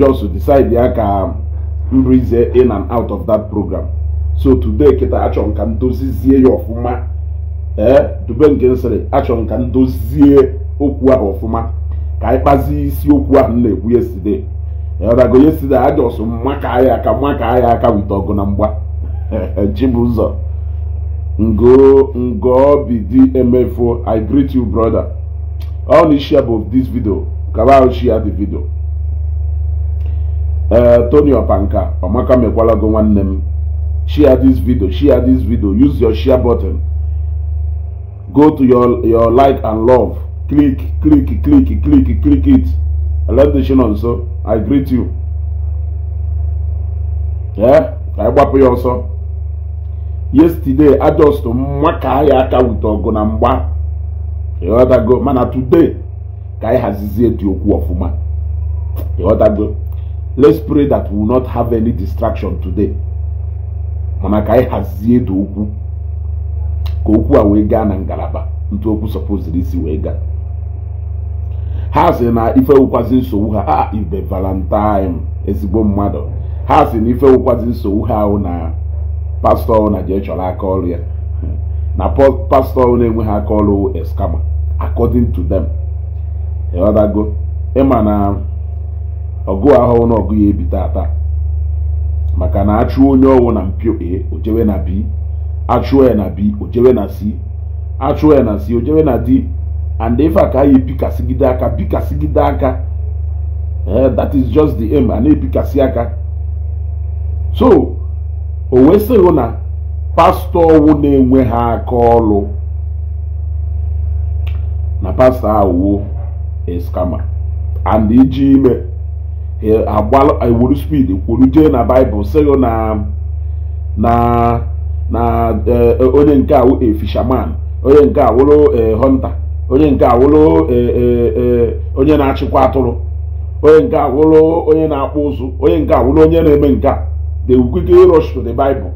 just decide ya ka mbụrizie in and out of that program so today kịta achọ nka ka m ya ọfụma ee dube nke nsịrị achọrọ m ka m dozie okwu ahụ ọfụma ka anyị kpazie isi ahụ na-ekwu yesterday ọdago yesterday ajọsụ mmaka aya aka mmaka aya aka wite ọgụ na mgba Chibuzor ngo ngo bidi emefo i greet you brother all the share of this video kabao share the video Eh, tony ọpanka ọmaka mekwalago nwanne m share this video share this video use your share button go to your your like and love click click click click click it elendshin nso i greet you ee ka anyị gbapụ ya ọsọ yesterday adust mma ka anyị aka wute ọgụ na mgba ịghọtago mana today ka anyị hazizie dị okwu ọfụma ịghọtago let's pray that we will not have any distraction today mana ka anyị hazie dị okwu ka okwu a wee gaa na ngalaba ntụ okwu sọpụziri isi wee gaa ha sị na ife wụkwazi nsogbu ha a ah, ife valentine ezigbo mmadụ ha sị na ife wụkwazi nsogbu ha ahụ na pastọ na jee chọrọ ya na pastọ na-enweghị aka ọrụ eskama according to them ịghọtago ịma na ọgụ ahụhụ na ọgụ ya ebi tata maka na achụ onye ọwụ na mpio a ojewe na b achụọ ya na b ojewe na c achụọ ya na c ojewe na d and ife a ka anyị ebikasịgide aka bikasịgide aka eh, that is just the aim a na-ebikasị aka so o wesịghị na pastọ ọwụ na-enwe ha aka ọlụ na pastọ awụwo eskama and iji ime agbalụ ewuru spid kwuru jee na baịbụl sịghị oh, na na na eh, eh, onye nke awụ efishaman onye nke awụrụ eh, hunter onye nke awụrụ onye na-achịkwa atụrụ onye nke awụrụ onye na-akpụ ụzụ onye nke awụrụ onye na-eme nke a they will quickly rush to the bible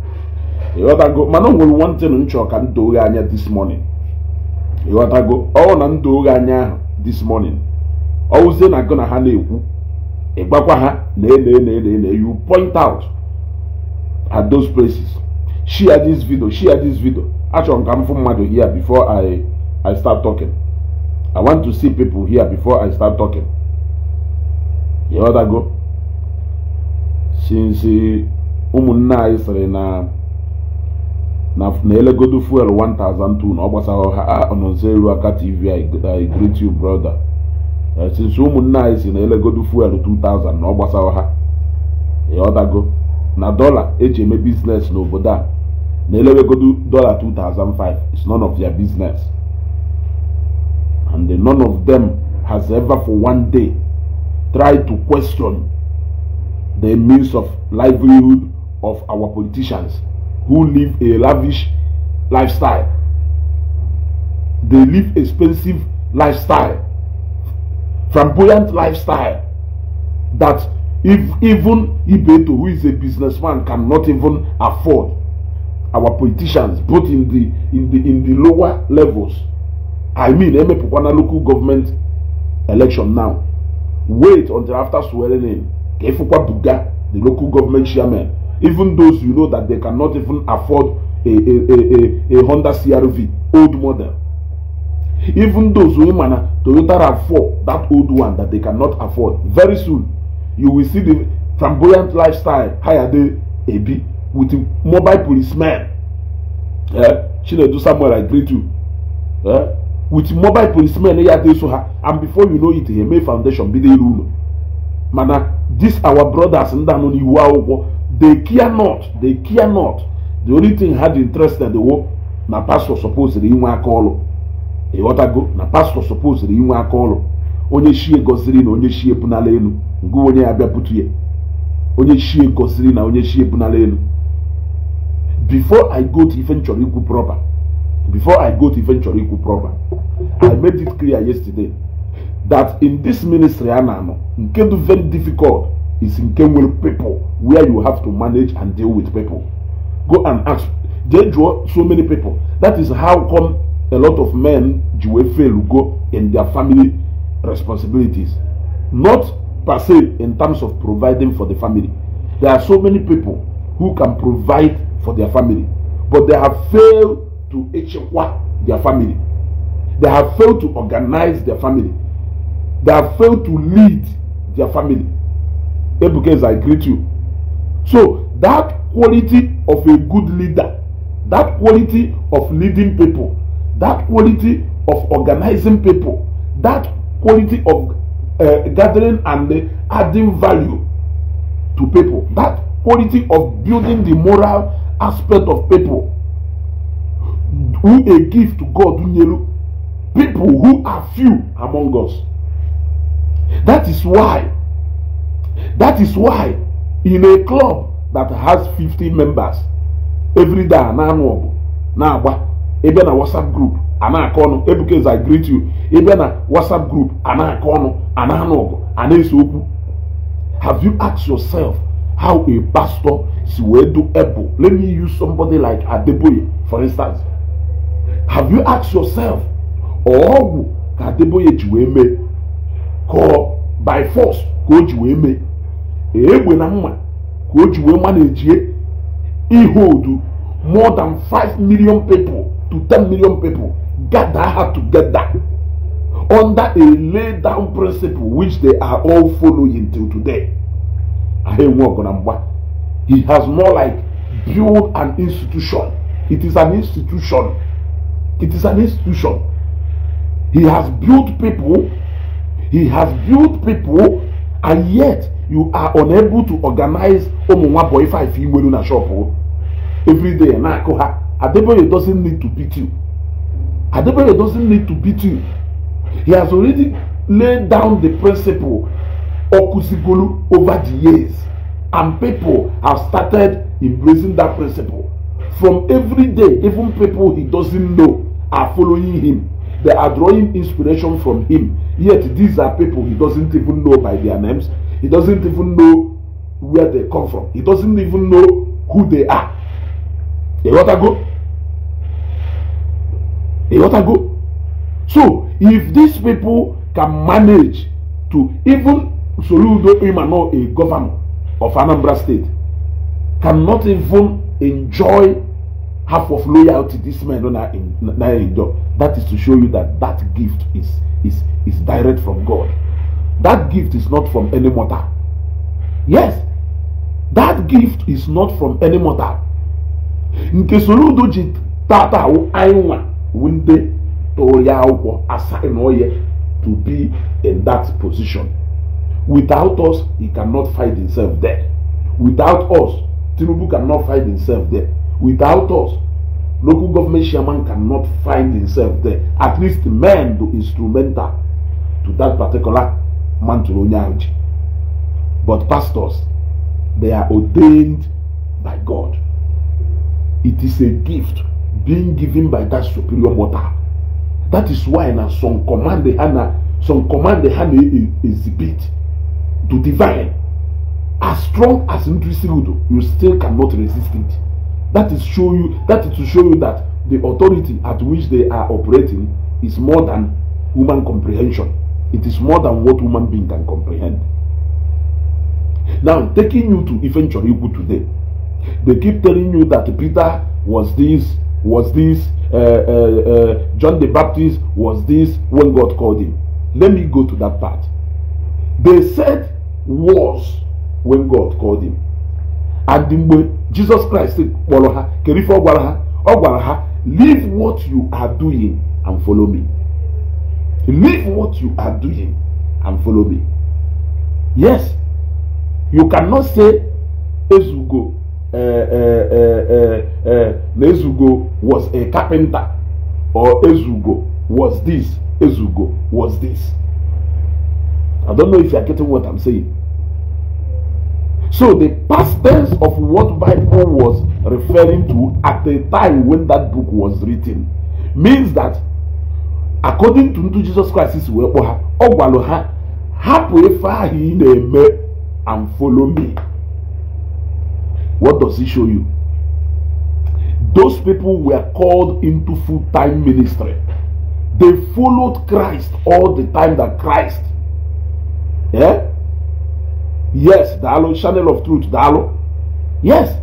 ịghọtago mana o nwere one thing m chọrọ ka m doo anya this morning ịghọtago ọ na m doo anya ahụ this morning wụzie na gụ na ha na-ekwu ịgbakwa ha lee lee lee lee lee you point out at those places share this video share this video achọrọ m ka m fụ mmadụ here before I I start talking I want to see people here before I start talking you otago since ụmụnne uh, anyị sịrị na na elegodo fuel 1002 na ọ gbasara ha ọnọnso elu aka tv I greet you brother sinsi ụmụnne anyị si na elegodu fuel 2000 na ọ gbasawa ha ọdago na dọla eji eme biznes n'obodo a na elewegodu dọla 2005 is none of their business and the none of them has ever for one day tried to question the means of livelihood of our politicians who live a lavish lifestyle they live expensive lifestyle flamboyant lifestyle that if even Ibeto, who is a businessman, cannot even afford. Our politicians, both in the in the in the lower levels, I mean, Eme Pukwana local government election now. Wait until after swearing in. Kefukwa Buga, the local government chairman, even those you know that they cannot even afford a a a, a, a Honda CRV old model even those women, mana ah, toyota rav4 that old one that they cannot afford very soon you will see the flamboyant lifestyle hayade ebi with the mobile policeman eh chinedu samuel i greet you Yeah, with mobile policemen eh, ya dey so ha and before you know it eme foundation bi dey rule mana ah, this our brothers ndị anọ n'iwu akwụkwọ they care not they care not the only thing had interest dị interested wo na pastor suppose inwe aka ọlụ ịghọtago na pastọ sọpoziri inwe aka ọrụ onye chie gosiri na onye chie pụnala elu nke onye ya bịapụtu ya onye chie gosiri na onye chie pụnala elu before i go to ife nchọrọ ikwu proper before i go to ife nchọrọ ikwu proper i made it clear yesterday that in this ministry a na-anọ nke dị very difficult is nke nwere people where you have to manage and deal with people go and ask jee jụọ so many people that is how come a lot of men ji fail go in their family responsibilities not per se in terms of providing for the family there are so many people who can provide for their family but they have failed to echekwa their family they have failed to organize their family they have failed to lead their family Because i greet you so that quality of a good leader that quality of leading people that quality of organizing people, that quality of uh, gathering and uh, adding value to people, that quality of building the moral aspect of people who a gift to God, people who are few among us. That is why, that is why in a club that has 50 members, every day, now, now, ebe na whatsapp group ana aka ọnụ ebukeze i greet you ebe na whatsapp group ana aka ọnụ ana anụ ọgụ ana ese okwu have you asked yourself how a pastor si wee do able let me use somebody like adeboye for instance have you asked yourself ọgwụ ka adeboye ji wee mee ka by force ka o ji wee mee egbe na mma ka o ji wee manejie ihe odu more than 5 million people to 10 million people gather her together under a laid down principle which they are all following till today. He has more like built an institution. It is an institution. It is an institution. He has built people. He has built people, and yet you are unable to organize Omuwa boy, if you were in a shop every day. Adeboye doesn't need to beat you. Adeboye doesn't need to beat you. He has already laid down the principle Okusigolu over the years. And people have started embracing that principle. From every day, even people he doesn't know are following him. They are drawing inspiration from him. Yet these are people he doesn't even know by their names. He doesn't even know where they come from. He doesn't even know who they are. They want to go They want to go so if these people can manage to even soludo imano a governor of anambra state cannot even enjoy half of loyalty this man don na enjoy that is to show you that that gift is is is direct from god that gift is not from any mortal yes that gift is not from any mortal nke soro udo ji tata ahụ anyị nwa wu ndị tụrụ ya akwụkwọ asaghị oye to be in that position without us he cannot fight himself there without us tinubu cannot fight himself there without us local government chairman cannot find himself there at least men do instrumental to that particular man tụrụ onye ahụ but pastors they are ordained by god It is a gift being given by that superior mother. That is why na some command the Hannah, some command the hand Hannah e, e, exhibit to divine. As strong as Ntrisirudo, you still cannot resist it. That is show you that is to show you that the authority at which they are operating is more than human comprehension. It is more than what human being can comprehend. Now, taking you to Ifenchorikwu today, They keep telling you that Peter was this, was this, uh, uh, uh, John the Baptist was this when God called him. Let me go to that part. They said was when God called him. And Jesus Christ said, ha kere leave what you are doing and follow me. Leave what you are doing and follow me. Yes, you cannot say ezugo na uh, uh, uh, ezugo was a carpenter or ezugo was this ezugo was this i don't know if you are getting what i'm saying so the past tense of what bible was referring to at the time when that book was written means that according to ndị jesus christ si wee kpọ ha ọ gwalụ ha hapụ ife ahụ ị na-eme and follow me. What does it show you? Those people were called into full time ministry. They followed Christ all the time that Christ. Yeah? Yes, Dalo, channel of truth, Dalo. Yes,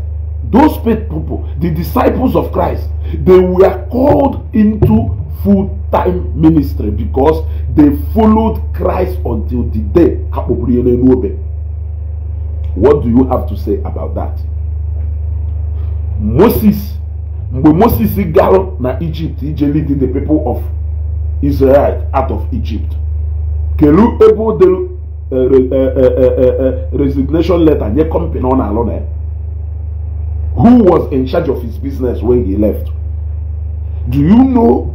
those people, the disciples of Christ, they were called into full time ministry because they followed Christ until the day. What do you have to say about that? moses when moses garụ na Egypt ije lead the people of israel out of egypt kelu ebe o dere eh, eh, eh, resignation letter nye company ọ na-alụ who was in charge of his business when he left do you know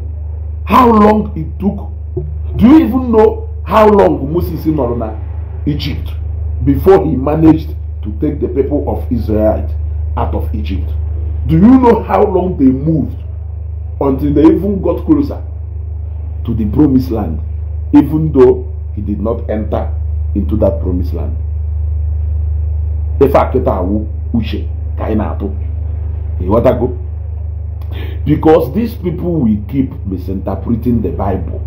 how long it took do you even know how long moses nọrọ na egypt before he managed to take the people of israel out of egypt do you know how long they moved until they even got closer to the promised land, even though he did not enter into that promised land? Because these people will keep misinterpreting the Bible.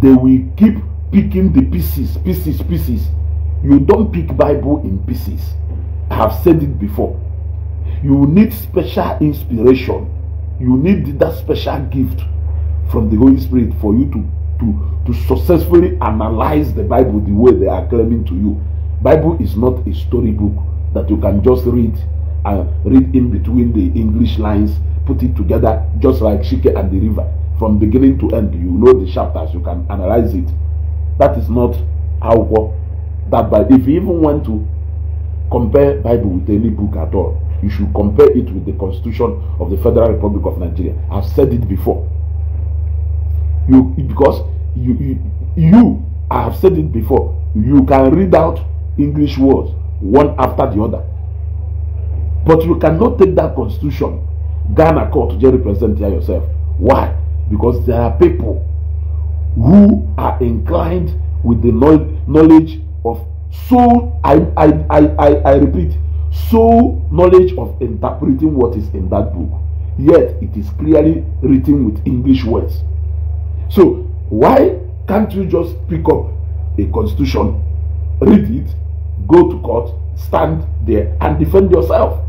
They will keep picking the pieces, pieces, pieces. You don't pick Bible in pieces. I have said it before. You need special inspiration. You need that special gift from the Holy Spirit for you to, to, to successfully analyze the Bible the way they are claiming to you. Bible is not a storybook that you can just read and read in between the English lines, put it together just like Shike and the river. From beginning to end, you know the chapters, you can analyze it. That is not how that but If you even want to compare Bible with any book at all, you should compare it with the constitution of the Federal Republic of Nigeria. I've said it before. You because you you, you I have said it before. You can read out English words one after the other, but you cannot take that constitution, Ghana court, to represent here yourself. Why? Because there are people who are inclined with the knowledge of So I I I I, I repeat so knowledge of interpreting what is in that book yet it is clearly written with english words so why can't you just pick up a constitution read it go to court stand there and defend yourself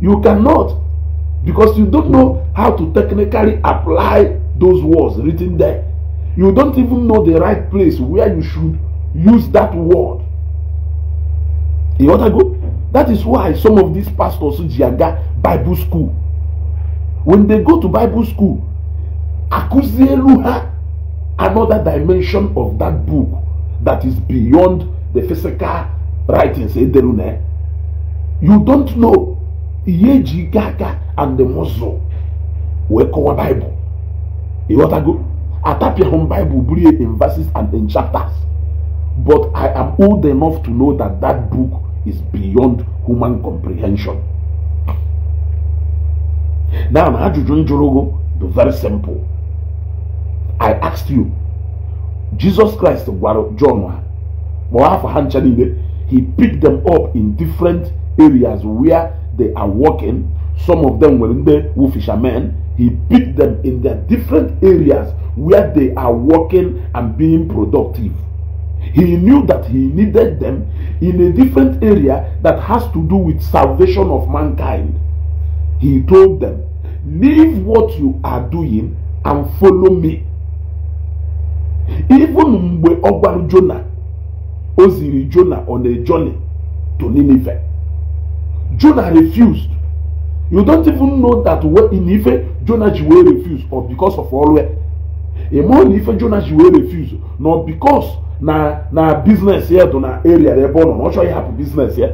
you cannot because you don't know how to technically apply those words written there you don't even know the right place where you should use that word you want to go that is why some of these pastors, Jiaga Bible School, when they go to Bible school, Akuzieluha, another dimension of that book that is beyond the physical writings. You don't know Yeji Gaga and the Muslim wekọwa Bible. Ịghọtago? home Bible in verses and in chapters. But I am old enough to know that that book is beyond human comprehension. Now, ajụjụ njụrụ do very simple. I asked you, Jesus Christ gwara John he picked them up in different areas where they are working. Some of them were in the fishermen. He picked them in their different areas where they are working and being productive. He knew that he needed them in a different area that has to do with salvation of mankind. He told them, Leave what you are doing and follow me. Even mgbe ọ Jonah Jona, o ziri on a journey to Nineveh. Jonah refused. You don't even know that in Nineveh Jonah ji wee refuse or because of ọrụ ya ịma na ife jonas wee refuse nọ because na na business here dị na area ebe born on. na ọ chọghị hapụ biznes ya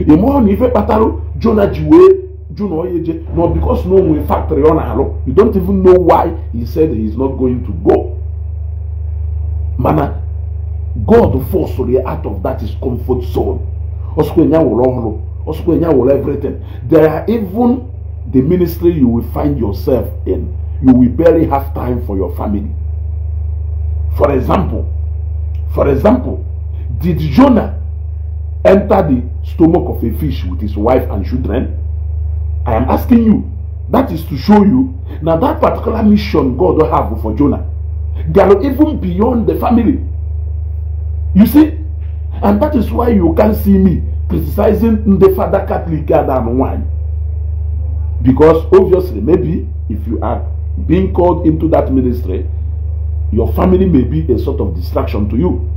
ịma na ife kpatara jona ji wee jụ na onye je because no onwe factory ọ na-arụ you don't even know why he said he is not going to go mana god forced ya out of that his comfort zone ọsụkwa enya wụrụ ọhụrụ ọsụkwa enya wụrụ everything there are even the ministry you will find yourself in you will barely have time for your family. For example, for example, did Jonah enter the stomach of a fish with his wife and children? I am asking you. That is to show you. Now that particular mission God will have for Jonah. They are even beyond the family. You see? And that is why you can't see me criticizing the father Catholic than one. Because obviously, maybe if you are being called into that ministry, your family may be a sort of distraction to you.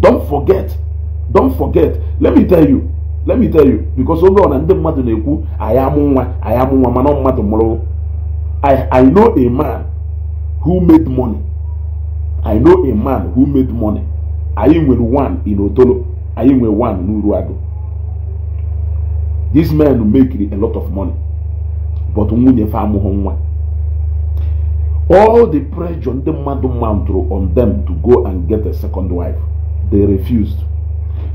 Don't forget. Don't forget. Let me tell you. Let me tell you. Because oge ọ na ndị mmadụ na I am nwa I am nwa man mmadụ mụrụ. I I know a man who made money. I know a man who made money. Anyị with one in Otolo. Anyị with one in n'Uruagụ. These men make a lot of money. but nwunye fa nwa all the pressure ndị mmadụ mantụrụ on them to go and get a second wife they refused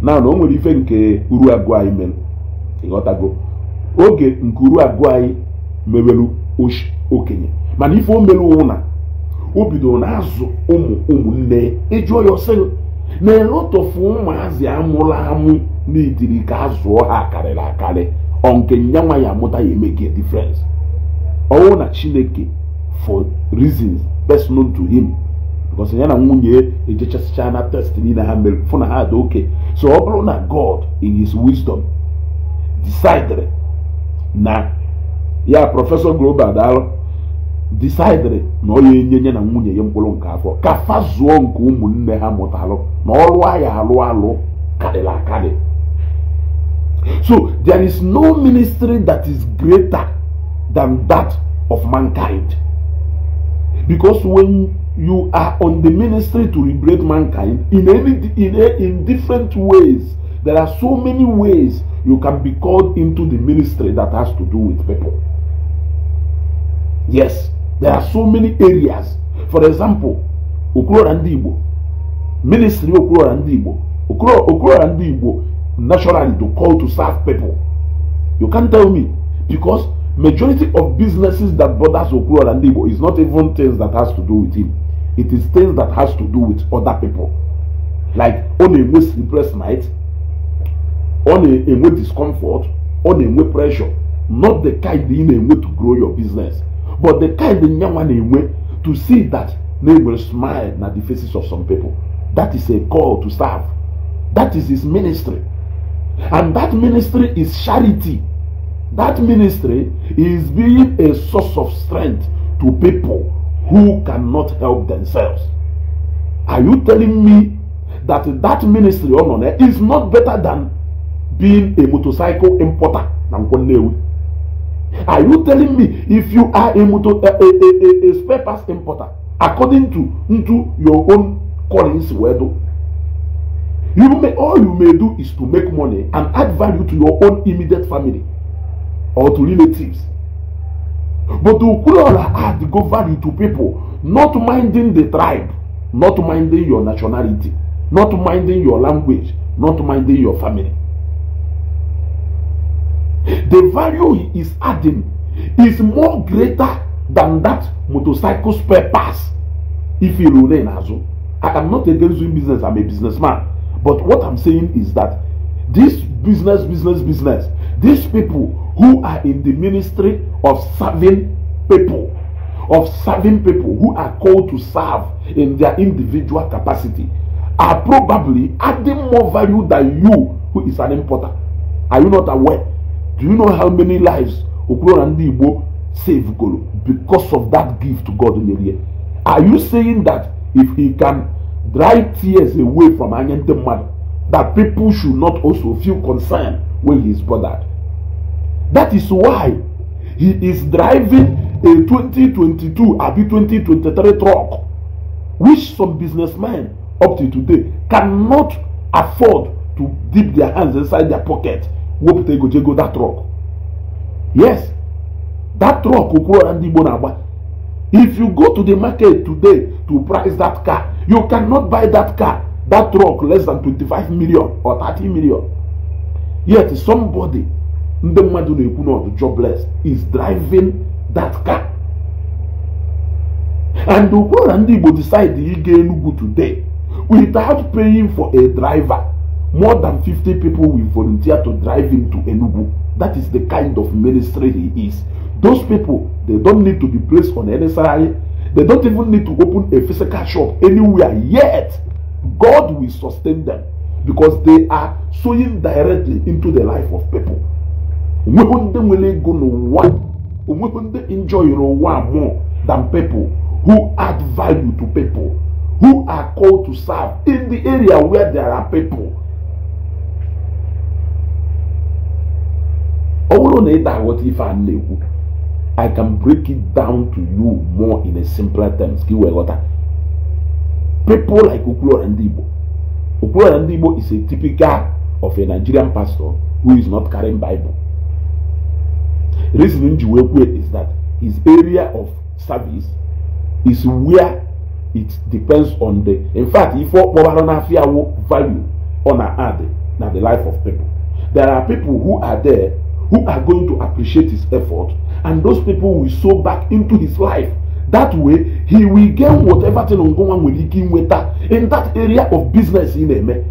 na na o nwere ife nke uru agụ anyị mere ịghọtago oge nke uru agụ anyị mewelu okenye mana ife o meru ụna o bidoro na-azụ ụmụ ụmụnne ịjụọ ya ọsị na-elotọfu ụmụazị amụrụ amụ na ka a ha karịrị akarị nke nyanwa ya amụta ya emeke difference ọnwụ na chineke for reasons personal to him because ya na nwunye ejechasịcha na test niile ha mere fụ na ha dị oke so ọ bụrụ na god in his wisdom decidere na ya prọfesọ global daalụ decidere na ọ ya enye ya na nwunye ya mkpụrụ nke afọ ka fa zụọ nke ụmụnne ha mụtalụ na ọlụ ya alụ alụ karịrị akadị So there is no ministry that is greater than that of mankind. Because when you are on the ministry to liberate mankind in any in, a, in different ways, there are so many ways you can be called into the ministry that has to do with people. Yes, there are so many areas. For example, Okurora Ndigbo, ministry Okurora Ndigbo, Okurora Ndigbo naturally to call to serve people you can't tell me because majority of businesses that bothers okuro and igbo is not even things that has to do with him it is things that has to do with other people like ọ a enwe sleepless night ọ a way discomfort ọ a way pressure not the kind in a way to grow your business but the kind nyanwa na way to see that na will smile at the faces of some people that is a call to serve that is his ministry And that ministry is charity. That ministry is being a source of strength to people who cannot help themselves. Are you telling me that that ministry Onone oh, is not better than being a motorcycle importer Are you telling me if you are a, motor, a, a, a, a, spare parts importer according to into your own callings wedo You may, all you may do is to make money and add value to your own immediate family or to relatives. But to Ukulora add go value to people, not minding the tribe, not minding your nationality, not minding your language, not minding your family. The value he is adding is more greater than that motorcycle spare pass. if you he in azu. I am not against doing business, I'm a businessman. But what I'm saying is that this business, business, business, these people who are in the ministry of serving people, of serving people who are called to serve in their individual capacity, are probably adding more value than you, who is an importer. Are you not aware? Do you know how many lives Okurora and Igbo save because of that gift to God in the Are you saying that if he can dry tears away from Anyente mother that people should not also feel concerned when he is bothered. That is why he is driving a 2022 abi 2023 truck which some businessmen up to today cannot afford to dip their hands inside their pocket they go jego that truck yes that truck okoro ndị igbo if you go to the market today to price that car You cannot buy that car, that truck less than 25 million or 30 million. Yet somebody, ndị mmadụ na-ekwu na ọdụ jobless is driving that car. And ukwuru na decide Igbo decide ịga Enugu today without paying for a driver. More than 50 people will volunteer to drive him to Enugu. That is the kind of ministry he is. Those people, they don't need to be placed on any salary. They don't even need to open a physical shop anywhere yet. God will sustain them because they are sowing directly into the life of people. Onwekwe ndị nwere ego n'ụwa onwekwe ndị enjoyere ụwa more than people who add value to people who are called to serve in the area where there are people. Ọ bụrụ na ị daghọta ife a na I can break it down to you more in a simpler terms. Kí wẹ̀ ghọta. People like Okulola Ndigbo. Okulola Ndigbo is a typical of a Nigerian pastor who is not carrying Bible. reason nji wee kwe is that his area of service is where it depends on the in fact ife ọkpọbara n'afia wo value on our add na the life of people. There are people who are there who are going to appreciate his effort and those people will sow back into his life that way he will gain whatever thing ongonwa nwere with that in that area of business In na-eme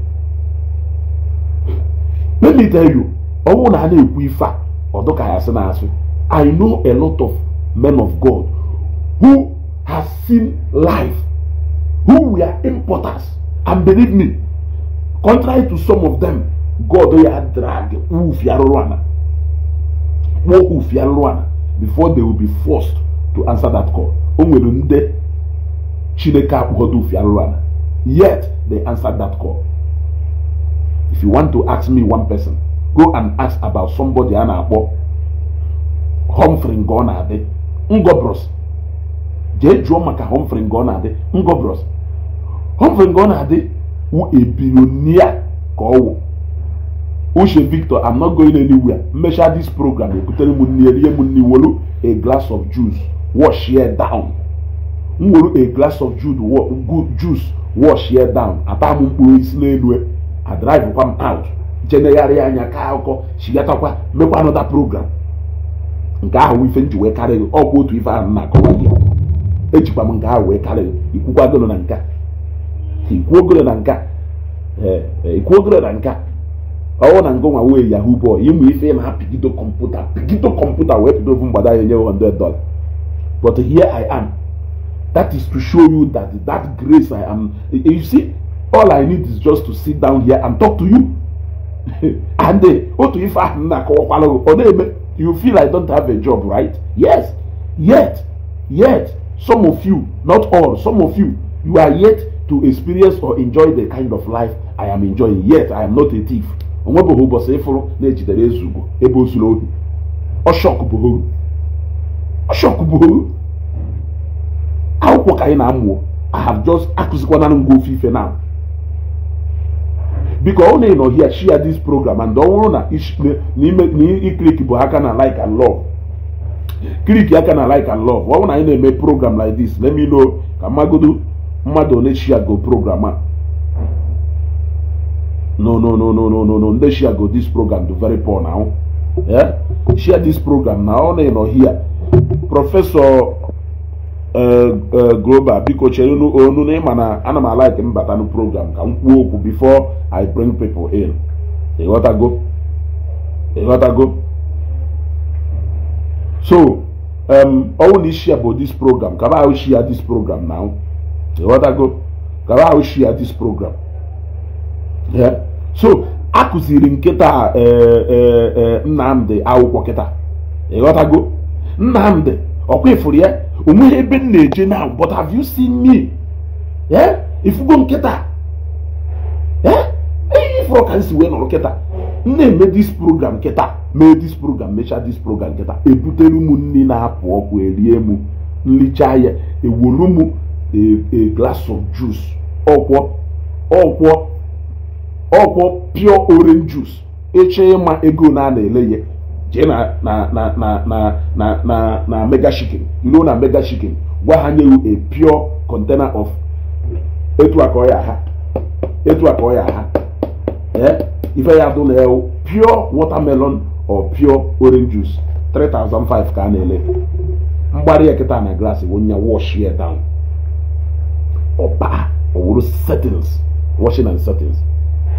let me tell you ọnwụ na a ekwu ife a ọdụka ya na asị i know a lot of men of god who has seen life who were importers and believe me contrary to some of them god ya drag wufi arụrụ ana kpọọ wufi arụrụ ana before they will be forced to answer that call o nwere ndị chineke akpụkọta ofi arụrụ ala yet they answered that call if you want to ask me one person go and ask about somebody a na-akpọ Humphrey nke ọ na-adị Ngobros jee jụọ maka Humphrey nke ọ na-adị Ngobros Humphrey nke ọ na-adị wụ a billionaire ka ọ wụ uche victor i'm not going anywhere mmechaa this program ebutere m nne ihe m nne wolu a glass of juice wash ya down m wolu a glass of juice wash ya down ata m mkpụrụ isi n'elu adrive e. kwa m out jenegharị anya ka akụkọ shigatakwa mekwa anọda program nke ahụ ife nji wee karị ọkwa otu ife ahụ na-akọwa gị ejikwa m nke ahụ wee karị gị ikwuogolo na nka ee e, ikwuogolo na nka ọwụ na ngụnwa wee yahoo bọọlụ ịmụ ife ma ha pigido kọmputa pigido kọmputa wee pido ofu mgbada ya nye 100 dollar but here i am that is to show you that that grace i am you see all i need is just to sit down here and talk to you and eh, otu ife ahụ m na-akọwakwala ọ na-eme you feel i don't have a job right yes yet yet some of you not all some of you you are yet to experience or enjoy the kind of life i am enjoying yet i am not a thief onwebeghị ụbọchị ịfụrụ na-ejidere eze ebe o zuru ohi ọshọk bụ bụ akwụkwọ ka anyị na-amụ I jọs just ngwa ofe ife na biko ọ na-enọ hia share dis program and ọ nwụrụ na iklik bụ aka na like and love klik aka na like and love ọ bụrụ na anyị na-eme program like this let me know ka mmagodo mmadụ one share go program a no no no no no no no Let's share go this program do very poor now Yeah, share this program now. ọ na-enọ here prọfesọ uh, uh, global biko chere know na ịma na ana m alike mbata na program ka m kwuo okwu before i bring people in What What I go? I go? so um, ọwụ na ishia bụ this program Can I share this program now What I go? Can I share this program yeah. so a kụziri e, nkịta e, e, nnamdị akwụkwọ kịta ịghọtago Nnamdi ọkwa ifuru ya onweghị ebe m na-eje na but have you seen me ifugo nkịta ihe ifuru ka si wee nọrọ kịta m na-eme dis program kịta mee dis program mechaa dis program kịta ebutere m nri na-apụ ọkụ erie m nlicha ya ewolu m a of juice ọkwọ ọkwọ ọkwọ pure orange juice eche ịma ego na a na-ele ya jee na na na na na mega chicken ruo na mega chicken gwa ha nye a pure container of etu aka ọ ya ha etu aka ọ ya ha eh? ife ya dụ na pure watermelon or pure orange juice 3005 ka a na-ele mgbari ekita na glass bụ nya wash ya down ọba ọ wụrụ settings washing and settings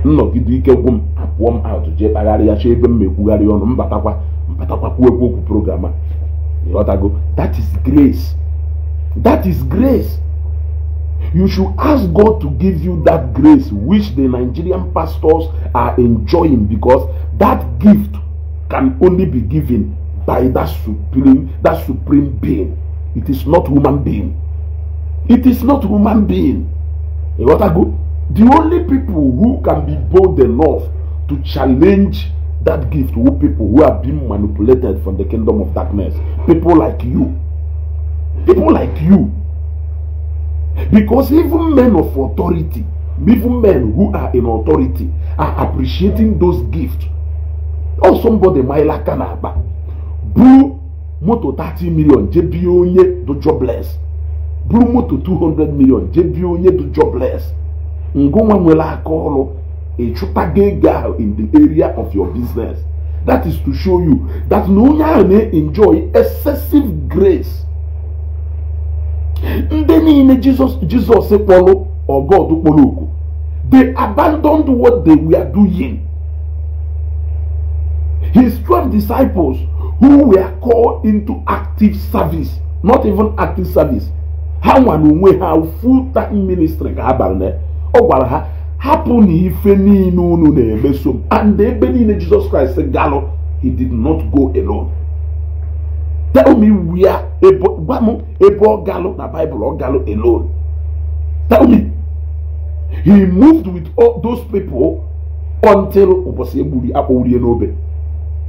nnọgide ike gwụ m apụọ m atụ jee kpagharịa chọọ ebe m mekwugharị ọnụ mbatakwa mbatakwa kwuo ekwu okwu program a ịghọtago that is grace that is grace you should ask God to give you that grace which the Nigerian pastors are enjoying because that gift can only be given by that supreme that supreme being it is not human being it is not human being ịghọtago The only people who can be bold enough to challenge that gift were people who have been manipulated from the kingdom of darkness. People like you. People like you. Because even men of authority, even men who are in authority, are appreciating those gifts. Oh somebody, Maila Kanaba, buru moto 30 million jebie do jobless. Buru moto 200 million jebie do jobless ngonwe nwere aka ọrụ ịchụtago ego ahụ in the area of your business that is to show you that na onye ahụ na-enjoy excessive grace ndị niile jizọs jizọs kpọrọ ọgọd kpọrọ oku they abandoned what they were doing his twelve disciples who were called into active service not even active service ha nwa na onwe ha full time ministry ka ha bara ọ gwara ha hapụ na ife niile unu na-emeso m and ebe niile jizọs kraịst galụ he did not go alone tell me where gwa m ebe ọ galụ na bible ọ galụ alone tell me he moved with all those people until ụbọchị egburu ya n'obe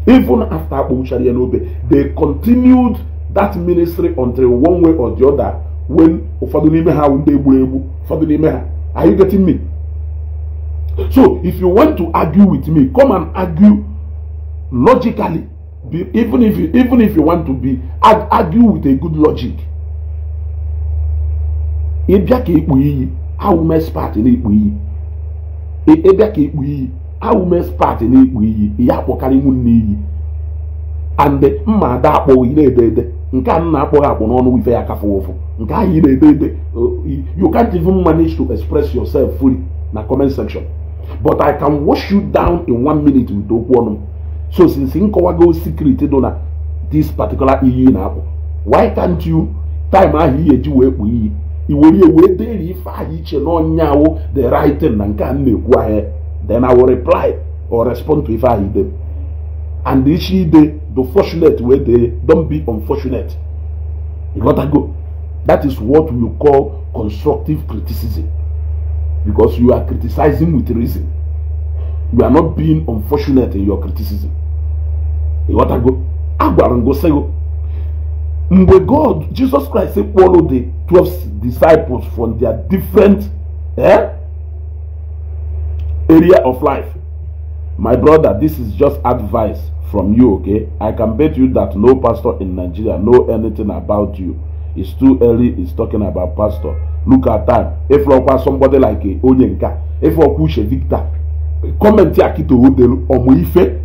even after akpọwuchara ya n'obe they continued that ministry until one way or the other when ụfọdụ n'ime ha ndị egburu egbu ụfọdụ n'ime ha Are you getting me? So if you want to argue with me, come and argue logically. Be, even if you, even if you want to be arg argue with a good logic. Ị bịa ka ekpu iyi, awụ m expert na-ekpu iyi. Ị e, bịa ka ekpu iyi, awụ m expert na-ekpu iyi, ya And mma ada akpọghị na-ede ede nke a nna akpọghị akpọ n'ọnụ ife ya kafe ụfụ nke ahụ ị na-ede ede uh, you can't even manage to express yourself fully na comment section but I can wash you down in one minute with okwu ọnụ so since nkọwago secret dị na this particular iyi na-akpọ why can't you time ahụ iye eji wee kpụ iyi i were wee ife ahụ iche na ọnyawo the writing na nke a na-ekwu ahịa then I will reply or respond to ife ahụ ide and ide the fortunate wey dey don be unfortunate you got to go that is what we call constructive criticism because you are criticizing with reason you are not being unfortunate in your criticism you got to go agwara ngo sego oh, mgbe god jesus christ follow the twelve disciples from their different eh, area of life my brother this is just advice from you, okay? I can bet you that no pastor in Nigeria know anything about you. It's too early, it's talking about pastor. Look at time. If you somebody like eh, Onyenka, if you push a Victor, comment here to Odelu Omuife.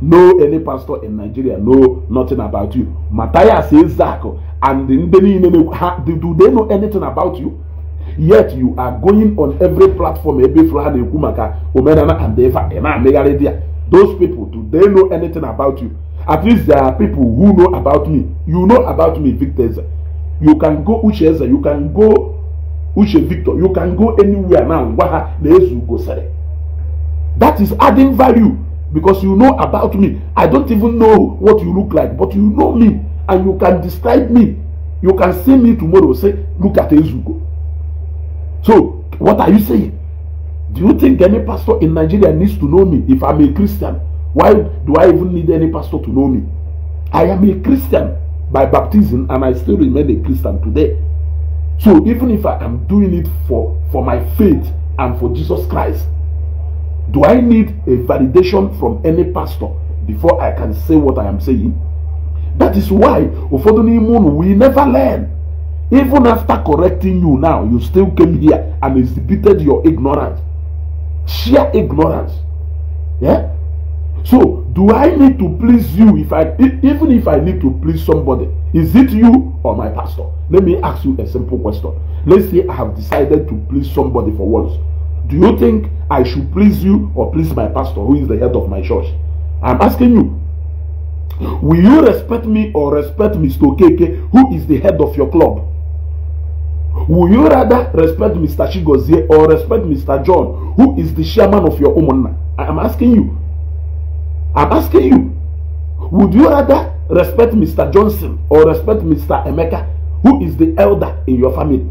No any pastor in Nigeria know nothing about you. Matthias says Zach. Oh, and do they know anything about you? yet you are going on every platform every flaha na and eva ị na-amịgharị di those people do they know anything about you at least there are people who know about me you know about me victor eze you can go uche eze you can go uche victor you can go anywhere now ngwa ha na ezu gosiri that is adding value because you know about me i don't even know what you look like but you know me and you can describe me you can see me tomorrow say look at ezugo so what are you saying Do you think any pastor in Nigeria needs to know me if I'm a Christian? Why do I even need any pastor to know me? I am a Christian by baptism and I still remain a Christian today. So even if I am doing it for, for my faith and for Jesus Christ, do I need a validation from any pastor before I can say what I am saying? That is why ụfọdụ n'ime we never learn. Even after correcting you now, you still came here and exhibited your ignorance sheer ignorance. Yeah? So, do I need to please you if I e, even if I need to please somebody? Is it you or my pastor? Let me ask you a simple question. Let's say I have decided to please somebody for once. Do you think I should please you or please my pastor who is the head of my church? I'm asking you. Will you respect me or respect Mr. KK who is the head of your club? Will you rather respect Mr. Chigozie or respect Mr. John, who is the chairman of your Umunna? am asking you. I'm asking you. Would you rather respect Mr. Johnson or respect Mr. Emeka, who is the elder in your family?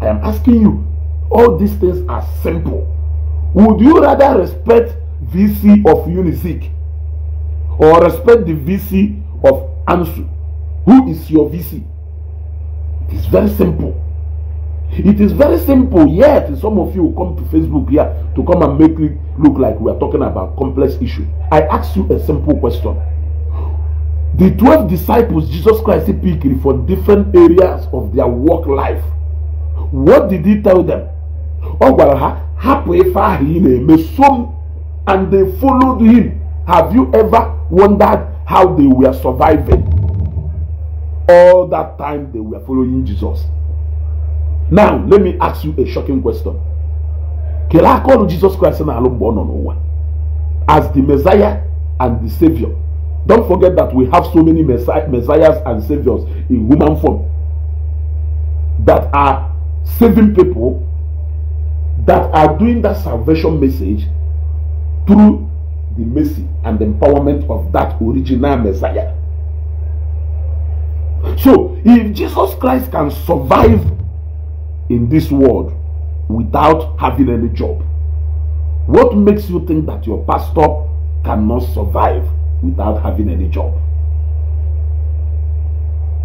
I am asking you. All these things are simple. Would you rather respect VC of Unizik or respect the VC of ANSU? Who is your VC? It's very simple. It is very simple, yet some of you come to Facebook here to come and make it look like we are talking about complex issue. I ask you a simple question. The 12 disciples Jesus Christ picked for different areas of their work life. What did he tell them? Ọ gwara ha hapụ ife ahụ and they followed him. Have you ever wondered how they were surviving? All that time they were following Jesus. now let me ask you a shocking question Can I call jesus christ na-alụ born on one as the messiah and the savior don't forget that we have so many messiahs and saviors in human form that are saving people that are doing that salvation message through the mercy and empowerment of that original messiah so if jesus christ can survive in this world without having any job? What makes you think that your pastor cannot survive without having any job?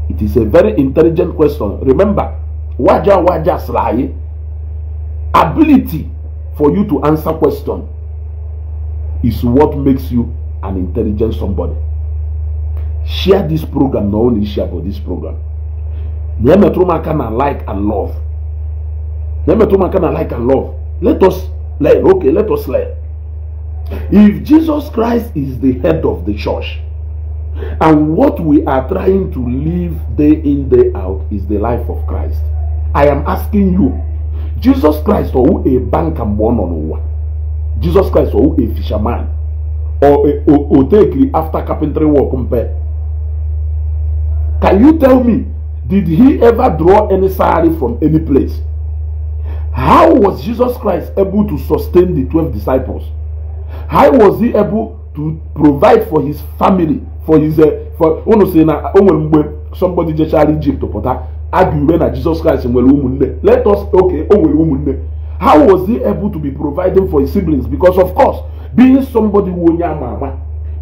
It is a very intelligent question. Remember, waja waja sly ability for you to answer question is what makes you an intelligent somebody. Share this program, not only share, about this program. me Nyame Trumaka na like and love my kind of like and love. Let us learn. Okay, let us learn. If Jesus Christ is the head of the church, and what we are trying to live day in, day out is the life of Christ. I am asking you, Jesus Christ or a banker born on one, Jesus Christ or a fisherman, or a take after carpentry work compare. Can you tell me, did he ever draw any salary from any place? How was Jesus Christ able to sustain the 12 disciples? How was he able to provide for his family, for his, uh, for, unu si na o nwere mgbe somebody jechara Egypt pụta aga ure na Jesus Christ nwere ụmụnne let us okay o nwere ụmụnne how was he able to be providing for his siblings because of course being somebody who onye ama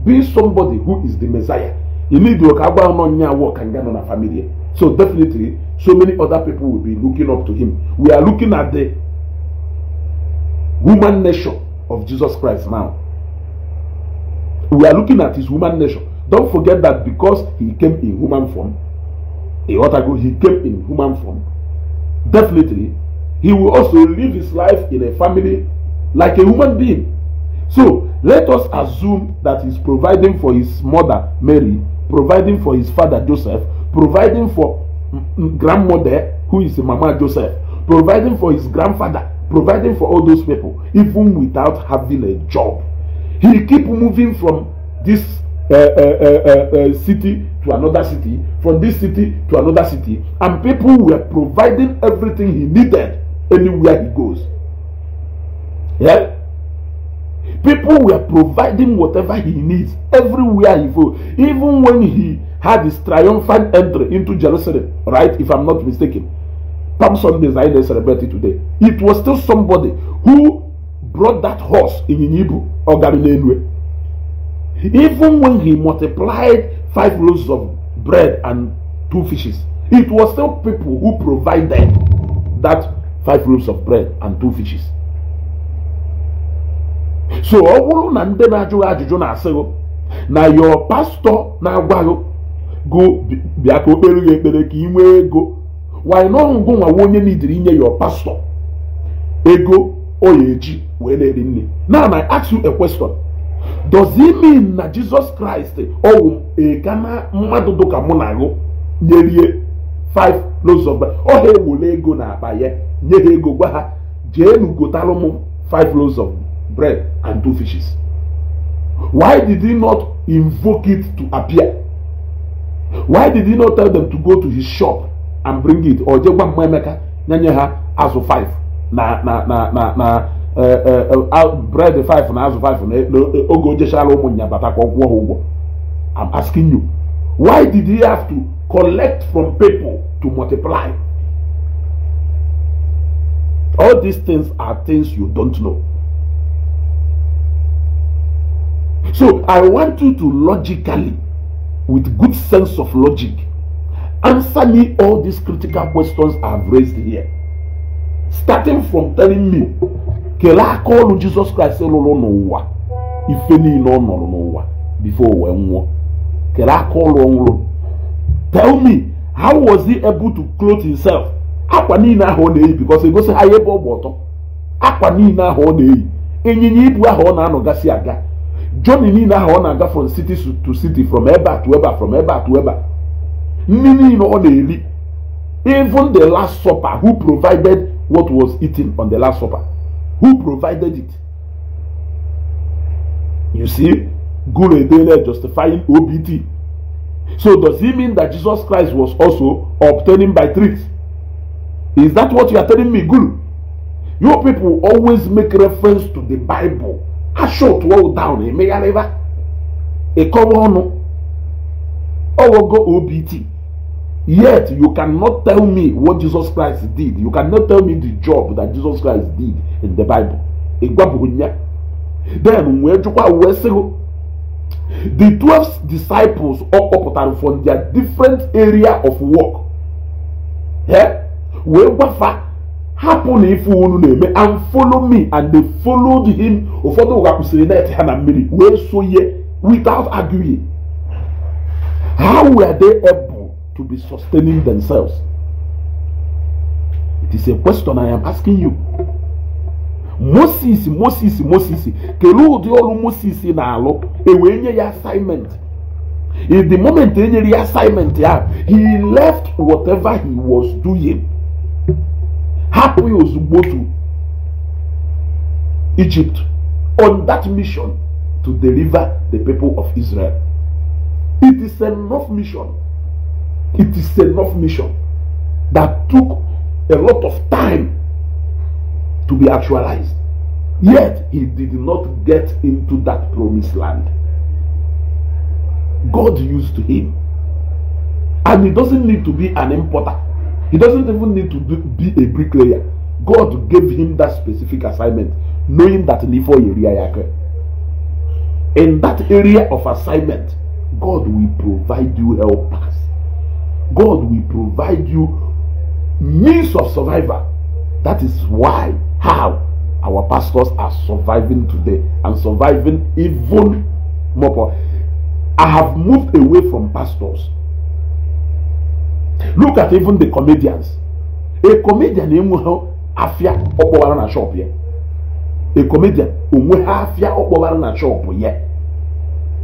being somebody who is the Messiah you ilidio ka agwa nọ nya work and get on a family. So definitely, so many other people will be looking up to him. We are looking at the woman nation of Jesus Christ now. We are looking at his woman nation. Don't forget that because he came in human form, a he came in human form. Definitely, he will also live his life in a family like a human being. So let us assume that he's providing for his mother Mary, providing for his father Joseph, providing for grandmother who is Mama Joseph, providing for his grandfather, providing for all those people, even without having a job. He keep moving from this uh uh, uh, uh, uh, city to another city, from this city to another city, and people were providing everything he needed anywhere he goes. Yeah? People were providing whatever he needs everywhere he goes. Even when he had his triumphant entry into Jerusalem, right? If I'm not mistaken. Palm is I celebrate it today. It was still somebody who brought that horse in Hebrew or Galilean Even when he multiplied five loaves of bread and two fishes, it was still people who provided that five loaves of bread and two fishes. So ọ your pastor now go bịa ka o kpere gị ekpere ka ị nwee ego wanyị n'ọrụ ngụ nwa onye n'idiri inye ya pastọ ego o ya eji wee na-eri nri now I ask you a question does it mean na Jesus Christ ọwụ ekana mmadụ dịka mụ na agụ nyerie 5 loaves of bread ọ ha ewere ego na akpa ya nye ha ego gwa ha jeenu gotalụ m 5 loaves of bread and two fishes why did he not invoke it to appear why did he not tell them to go to his shop and bring it or jee gwa mma emeka nyenye ha azụ 5 na na na na na eh, eh, eh, bread 5 na azụ 5 na oge ojechara ụmụnya batakwa ọgwụ ha ụgwọ i'm asking you why did he have to collect from people to multiply all these things are things you don't know so i want you to logically with good sense of logic. Answer me all these critical questions I've raised here. Starting from telling me, kele aka ọrụ Jizọs Kraịst lụrụ n'ụwa ife no no nọrọ n'ụwa before wee nwụọ kele aka ọrụ tell me how was he able to clothe himself akwa na-eyi because he ha ya ebe ọ bụ ọtọ akwa niile ahụ ọ na-eyi ịnyịnya ibu ahụ ọ na-anọgasị aga John niile ahụ ọ na-aga from city to city from ebe to ebe from ebe to ebe a nri niile ọ na-eri even the last supper who provided what was eaten on the last supper who provided it you see guru edele justifying obt so does he mean that jesus christ was also obtaining by tricks is that what you are telling me guru Your people always make reference to the bible ha shot wall down emegharịba ịkọwa ọnụ go obt yet you cannot tell me what jesus christ did you cannot tell me the job that jesus christ did in the bible ịgwabụghị ya then wee jụkwa wee sịgo the twelve disciples ọ kpọpụtara from their different area of work wee gwafa hapụna ife unu na-eme and follow me and they followed him ụfọdụ ụga kwụsịrị net ha na mmiri wee sonye without arguing how were they able to be sustaining themselves it is a question i am asking you moses moses moses kelee ụdị ọrụ moses na-alụ ewee nye ya assignment in the moment e nyere ya assignment ya he left whatever he was doing hapụ ya ozugbo to Egypt on that mission to deliver the people of Israel. It is enough mission. It is enough mission that took a lot of time to be actualized. Yet he did not get into that promised land. God used him. And he doesn't need to be an importer He doesn't even need to be a bricklayer. God gave him that specific assignment, knowing that in that area of assignment, God will provide you helpers. God will provide you means of survival. That is why, how our pastors are surviving today and surviving even more. I have moved away from pastors look at even the comedians a comedian enwe ha afịa ọ kpọwara na shop ya a comedian onwe ha afịa ọ kpọwara na shop ya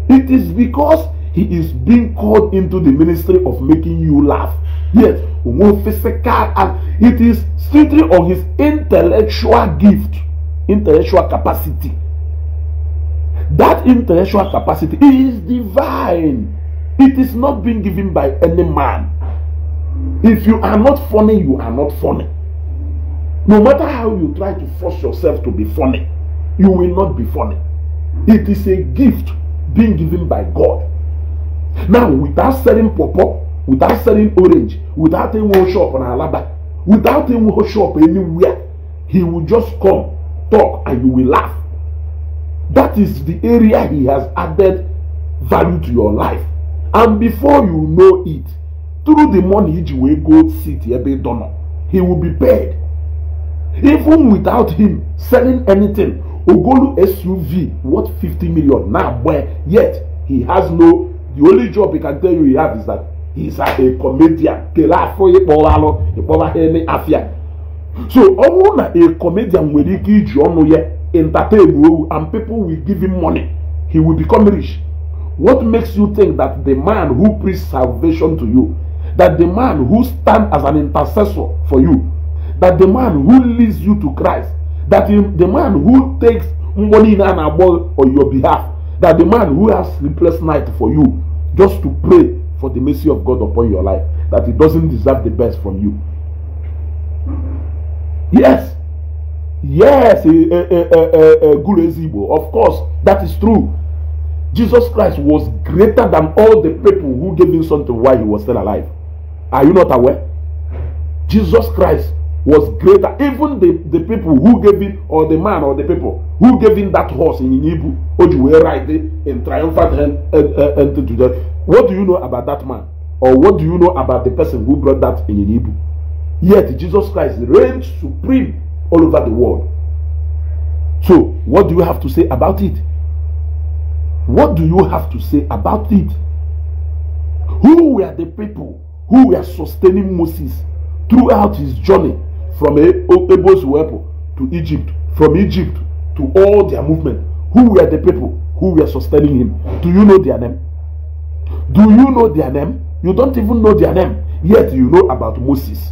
it is because he is being called into the ministry of making you laugh yes onwe physical and it is strictly on his intellectual gift intellectual capacity that intellectual capacity is divine it is not being given by any man If you are not funny, you are not funny. No matter how you try to force yourself to be funny, you will not be funny. It is a gift being given by God. Now, without selling popo, without selling orange, without any workshop on Alaba, without any workshop anywhere, he will just come, talk, and you will laugh. That is the area he has added value to your life. And before you know it, through the money he will go sit ebe ịdọ he will be paid even without him selling anything ogolu suv worth 50 million now where yet he has no the only job he can tell you he has is that he's a comedian afịa so only a comedian nwere ike You ọnụ entertain and people will give him money he will become rich what makes you think that the man who preached salvation to you that the man who stands as an intercessor for you, that the man who leads you to Christ, that the man who takes money in an abode on your behalf, that the man who has sleepless night for you, just to pray for the mercy of God upon your life, that he doesn't deserve the best from you. Yes, yes, Gulezigbo, of course, that is true. Jesus Christ was greater than all the people who gave him something while he was still alive. Are you not aware? Jesus Christ was greater. Even the, the people who gave him, or the man or the people who gave him that horse in Ibu, which were riding in triumphant entry uh, uh, to them. What do you know about that man? Or what do you know about the person who brought that in Ibu? Yet Jesus Christ reigns supreme all over the world. So, what do you have to say about it? What do you have to say about it? Who were the people who were sustaining Moses throughout his journey from Abel's Wepo to Egypt, from Egypt to all their movement. Who were the people who were sustaining him? Do you know their name? Do you know their name? You don't even know their name, yet you know about Moses.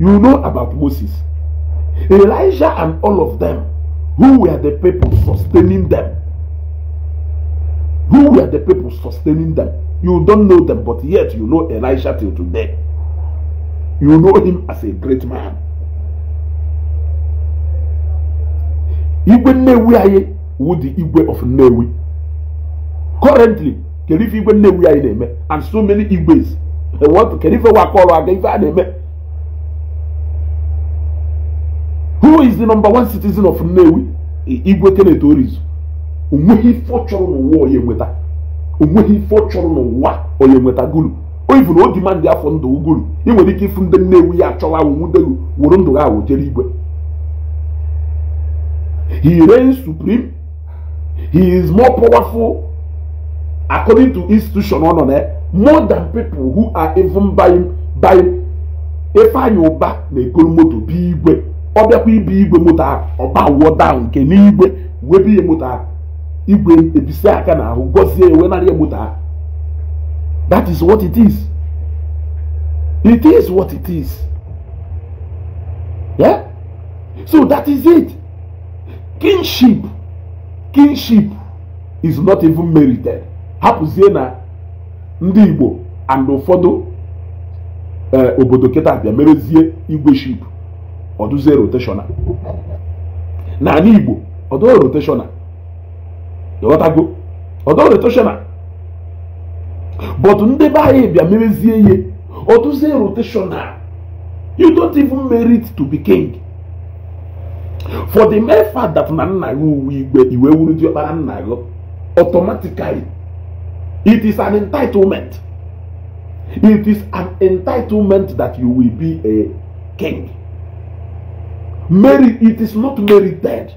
You know about Moses. Elijah and all of them, who were the people sustaining them? Who were the people sustaining them? You don't know them, but yet you know Elisha till today. You know him as a great man. Igwe Nnewi anyị wụ the Igwe of Nnewi. Currently, kedu ife Igwe Nnewi anyị na-eme and so many Igwes. What ife wakọrọ aga ife a Who is the number one citizen of Nnewi? Igwe Kenneth Orizu. Onweghị ife ọ chọrọ n'ụwa onye onweghị ife ọ chọrọ n'ụwa onye nweta gulu oyibu na o dimandị afọ ndụ uguru ị nwere ike ịfụ ndị nnewu ya achọwa awụwudelu wụrụ ndụ ha awụjere igwe he reigns hi he is more powerful according to institution ọ nọ na more than people who are even buying buying Ifeanyị Ụba na-egoro moto bi igwe ọ bịakwa ibi igwe moto ahụ ọba wuo daa nke n'igwe wee bi ya moto ahụ igwe ebisa aka n'ahụ gọzie ewe narị egbuta ha that is what it is it is what it is yeah? so that is it kinship kinship is not even merited hapụzie na ndị igbo and ụfọdụ eh, obodo kịta bịa merezie igwe ship ọdụzie rotational. na ala igbo ọdụ rotational go? ịghọtago ọdọre toshena but ndị be anyị bịa memezie ihe otuzie rotational you don't even merit to be king for the mere fact that na nna gị uwe igwe iwe wuru diọkpara nna gị automatically it is an entitlement it is an entitlement that you will be a king merit it is not merited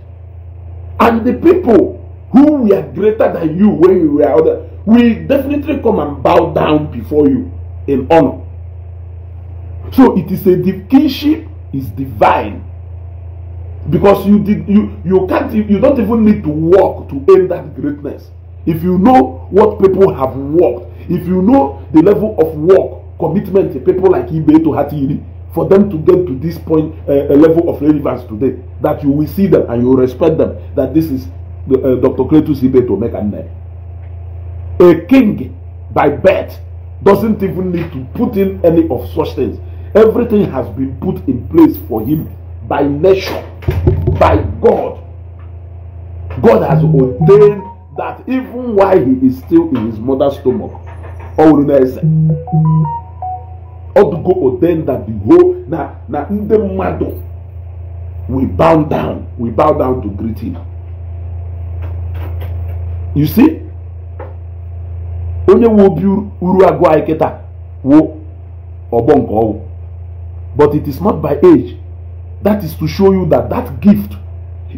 and the people who we are greater than you when you were other, will definitely come and bow down before you in honor. So it is a kingship is divine because you did you you can't you don't even need to work to earn that greatness. If you know what people have worked, if you know the level of work commitment people like Ibe to Hatiri for them to get to this point uh, eh, a eh, level of relevance today that you will see them and you respect them that this is uh, Dr. Cletus Ibeto Mekanne. A king by birth doesn't even need to put in any of such things. Everything has been put in place for him by nature, by God. God has ordained that even while he is still in his mother's stomach, Odugo ordained that the whole Now in the mmadụ we bow down we bow down to greet him you see onye wu obi uru agụ anyị kịta wo ọgbọ nke ọwụ but it is not by age that is to show you that that gift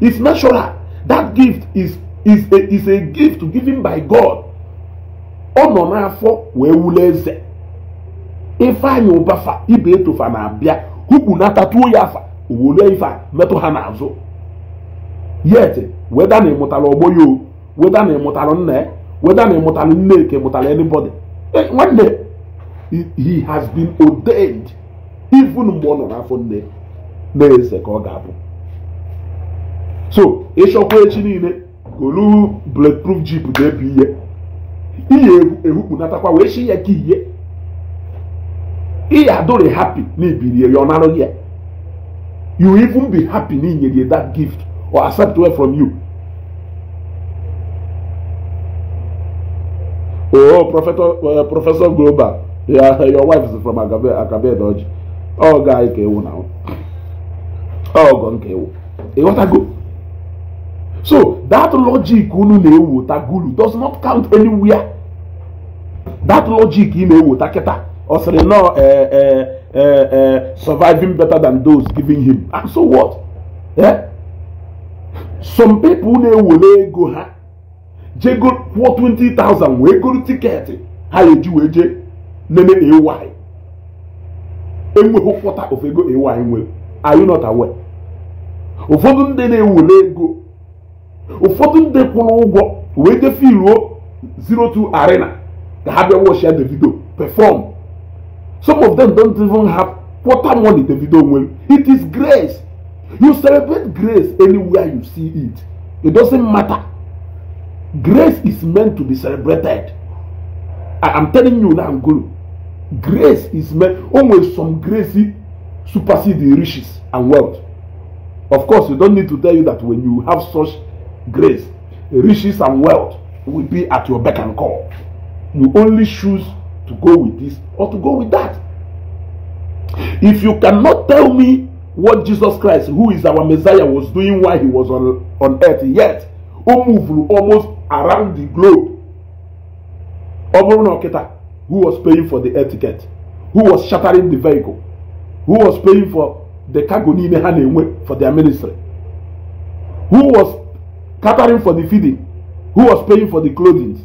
is natural that gift is is a is a gift given by God ọ nọ n'afọ wee wule eze ifeanyị ụbafa ibe etofa na-abịa hụkwu natatuo ya afa owolu ife a metụ ha n'azụ yet weda na ịmụtara ọgbọ ya o whether na ịmụtalụ nne ya weda na ịmụtalụ nneke mụtara anybody nwanne eh, he has been ordained even mgbe ọ nọ n'afọ nne na-eze ka ọ ga-abụ so ịchọkwa echi niile ka blake bulletproof jip na ebu ihe ihe ehukpunatakwa wee chi ya ka ihe ihe adụrị happy na ya ọ narụ ya you even be happy na inyere that gift or accept well from you Oh, Professor, uh, Professor Global, yeah, your wife is from Akabe, Akabe Dodge. Oh, guy, Kewu now. Oh, gone Kewu. Hey, what I go? So, that logic unu na-ewu tagulu does not count anywhere. That logic ị na-ewu takịta. Ọ sịrị nọ surviving better than those giving him. And so what? Yeah? Some people na-ewere ego ha jego 420,000 wee goro tiketi ha eji wee jee nene ay enweghị ụfọta ofe ego ay nwere are you not aware ụfọdụ ndị na-ewere ego ụfọdụ ndị kwụrụ ụgwọ wee jee zero two arena ka ha bịa wọchia davido perform some of them don't even have quarter money davido nwere it is grace you celebrate grace anywhere you see it it doesn't matter Grace is meant to be celebrated. I am telling you now, Guru. Grace is meant, only some grace supersede the riches and wealth. Of course, we don't need to tell you that when you have such grace, riches and wealth will be at your beck and call. You only choose to go with this or to go with that. If you cannot tell me what Jesus Christ, who is our Messiah, was doing while he was on, on earth yet, almost around the globe ọ bụrụ who was paying for the air ticket who was shattering the vehicle who was paying for the cargo niile ha na-enwe for their ministry who was catering for the feeding who was paying for the clothing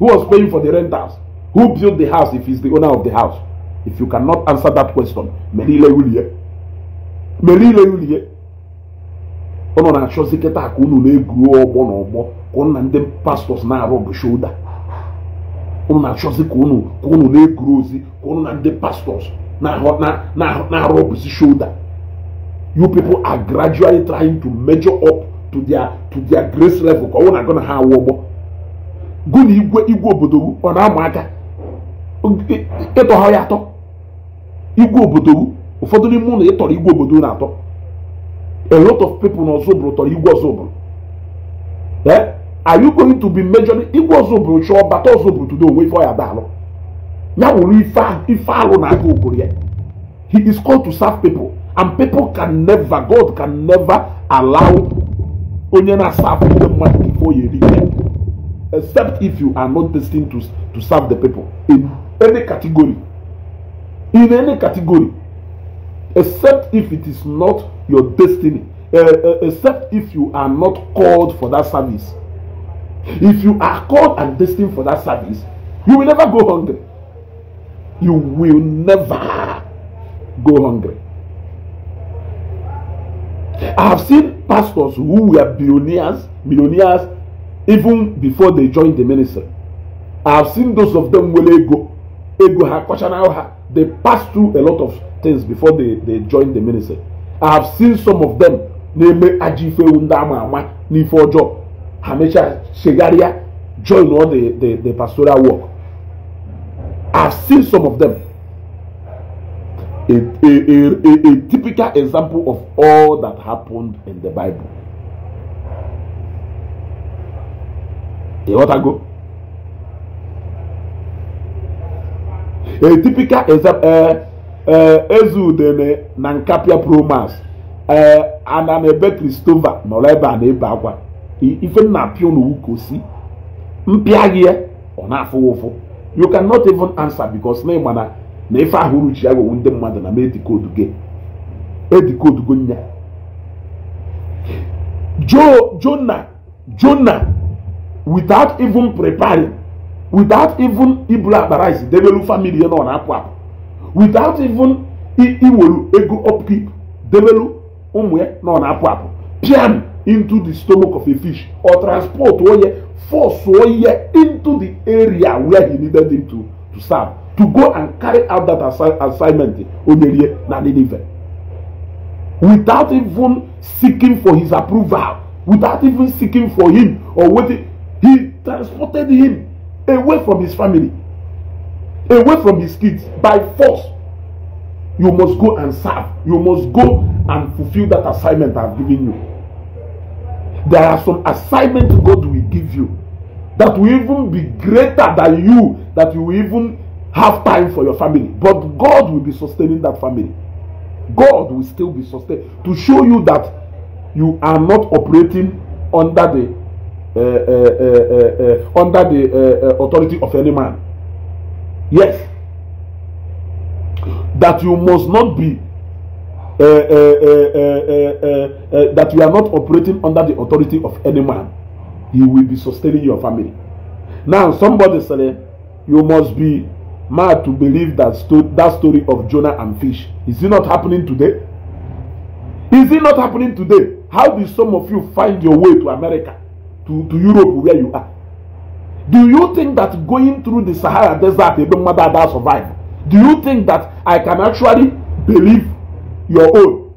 who was paying for the rentals who built the house if he's the owner of the house if you cannot answer that question mere ile wulie mere ile wulie ọ nọ na-achọzi kịta ka unu na-egwu ọgbọ na unu na ndị pastọs na-arụ bụ shoulder unu na-achọzi ka ụnụ ka ụnụ na-ekuru ozi ka unu na ndị pastọs na-arụ bụzi shoulder you people are gradually trying to measure up to their to their grace level ka ọ na-agụ na ha awụ ụgbọ gụ na igwe igwe obodo ọ na-ama aka ịtọha ya atọ igwe obodo ụfọdụ n'ime ụlọ ịtọrọ igwe obodo na atọ a lot of people n'ọzọ bụrụ tọrọ igwe ọzọ bụrụ eh? are you going to be measuring igwe ọzọ bụrụ chọọ bata ọzọ bụrụ tudo onwe ife ọ ya da alụ ya wụrụ ife alụ na aga ogoro he is called to serve people and people can never god can never allow onye na-asafụ ndị mmadụ before you reach them except if you are not destined to, to serve the people in any category in any category except if it is not your destiny uh, uh, except if you are not called for that service If you are called and destined for that service, you will never go hungry. You will never go hungry. I have seen pastors who were billionaires, millionaires, even before they joined the ministry. I have seen those of them who ego, ego They passed through a lot of things before they, they joined the ministry. I have seen some of them Hamesha Shegaria join all the, the, the pastoral work. I've seen some of them. A, a, a, a typical example of all that happened in the Bible. A what ago? A typical example. Uh, eh, uh, eh, Ezudene na Nkapia Promas uh, eh, ana na ebe Kristova nọrọ ebe a akwa. ife m na-apịa n'owu ka o si mpịa gị ya ọ na-afụ ụfụ you cannot even answer because na ịgba na na ife ahụ uruchi ya gwewu ndị mmadụ na m edikodu gị edikodu gị nya jo jona jona without even preparing without even ibulu akpa rice debelu family na ọ na-apụ apụ without even iwelu ego upkeep debelu ụmụ ya na ọ na-apụ apụ piano into the stomach of a fish or transport oye force oye into the area where he needed him to to serve to go and carry out that assi assignment onyerie na Nineveh without even seeking for his approval without even seeking for him or waiting he transported him away from his family away from his kids by force you must go and serve you must go and fulfill that assignment i have given you there are some assignments God will give you that will even be greater than you, that you will even have time for your family. But God will be sustaining that family. God will still be sustained to show you that you are not operating under the uh, uh, uh, uh, under the uh, uh, authority of any man. Yes, that you must not be uh, uh, uh, uh, uh, uh, that you are not operating under the authority of any man he will be sustaining your family now somebody say you must be mad to believe that, sto that story of jonah and fish is it not happening today is it not happening today how do some of you find your way to america to to europe where you are do you think that going through the sahara desert ebe mmadụ that survive do you think that i can actually believe your own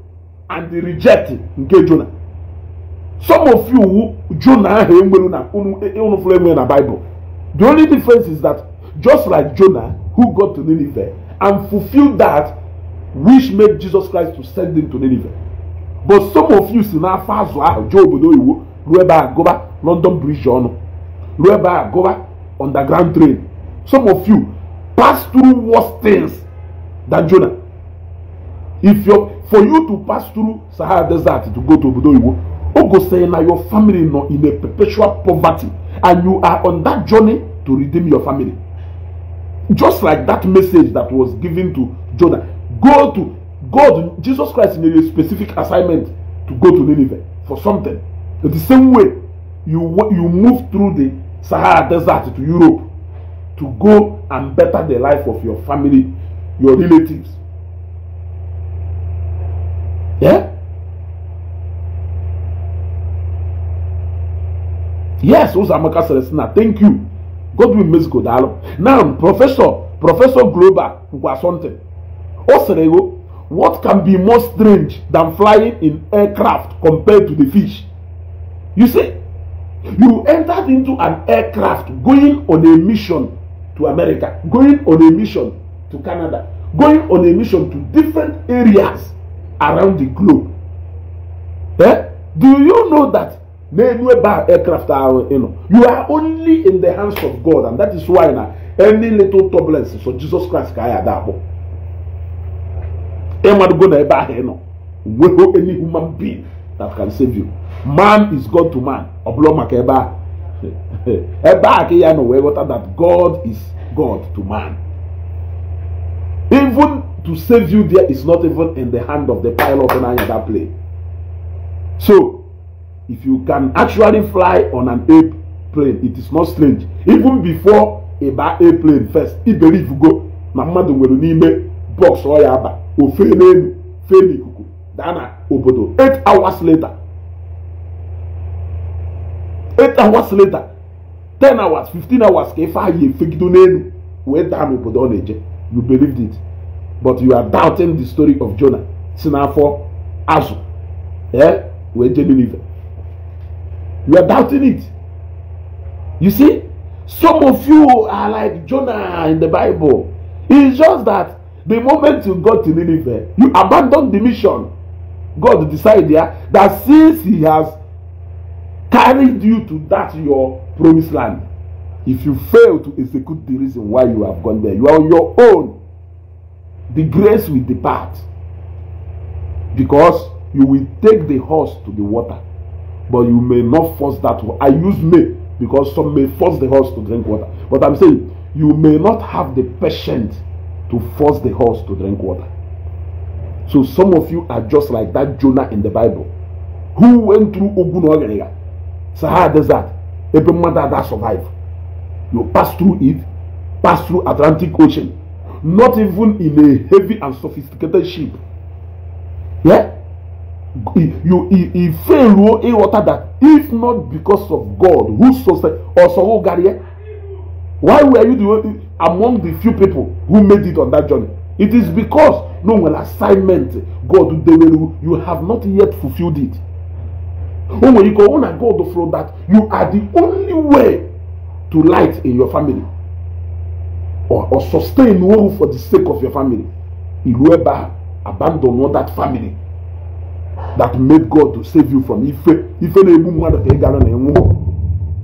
and reject nke Jona some of you who Jona ahụ enwere na unu e, e, fụrụ enwere na Bible the only difference is that just like Jona who got to Nineveh and fulfilled that which made Jesus Christ to send him to Nineveh but some of you si n'afọ azụ ahụ jee obodo oyiwo ruo ebe a London Bridge ọnụ ruo ebe a gụba underground train some of you pass through worse things than Jonah if your for you to pass through sahara desert to go to obodo iwo ogo say na your family no in a perpetual poverty and you are on that journey to redeem your family just like that message that was given to jonah go to god jesus christ in a specific assignment to go to nineveh for something in the same way you you move through the sahara desert to europe to go and better the life of your family your relatives Yeah? Yes, Uzamaka Celestina, thank you. Go do musical dialogue. Now, Professor, Professor Globa Kwasonte, Osrego, what can be more strange than flying in aircraft compared to the fish? You see, you entered into an aircraft going on a mission to America, going on a mission to Canada, going on a mission to different areas around the globe. Eh? Do you know that many bar aircraft are you know you are only in the hands of God, and that is why now any little turbulence so Jesus Christ can ya that. Emmanuel go na ebe any human being that can save you. Man is God to man. Ọ bụrụ maka ebe a ebe a that God is God to man. Even to save you there is not even in the hand of the pilot on another plane. So, if you can actually fly on an airplane, it is not strange. Even before a bad airplane first, if believe you go, na mmadụ nwere n'ime box ọ ya aba ofe n'elu fee n'ikuku daa na obodo 8 hours later eight hours later ten hours fifteen hours ka ife ahụ efegido n'elu wee daa n'obodo ọ na you believed it but you are doubting the story of Jonah si n'afọ azụ ee eh, wee jee Ninive you are doubting it you see some of you are like Jonah in the Bible it's just that the moment you go to Ninive you abandon the mission God decide yeah, that since he has carried you to that your promised land if you fail to execute the reason why you have gone there you are on your own the grace will depart because you will take the horse to the water but you may not force that one. I use may because some may force the horse to drink water. But I'm saying you may not have the patience to force the horse to drink water. So some of you are just like that Jonah in the Bible who went through Ogun how Sahara Desert, every mother that survived. You pass through it, pass through Atlantic Ocean, not even in a heavy and sophisticated ship. Yeah? You he fail a oh, water that if not because of God who sustained or so Gary, why were you the, among the few people who made it on that journey? It is because no well assignment God you have not yet fulfilled it. Oh, when you go on and God that you are the only way to light in your family or, or sustain one for the sake of your family he will ever abandon that family that made god to save you from ife ife na-egbu mmadụ ka ị gara na enwu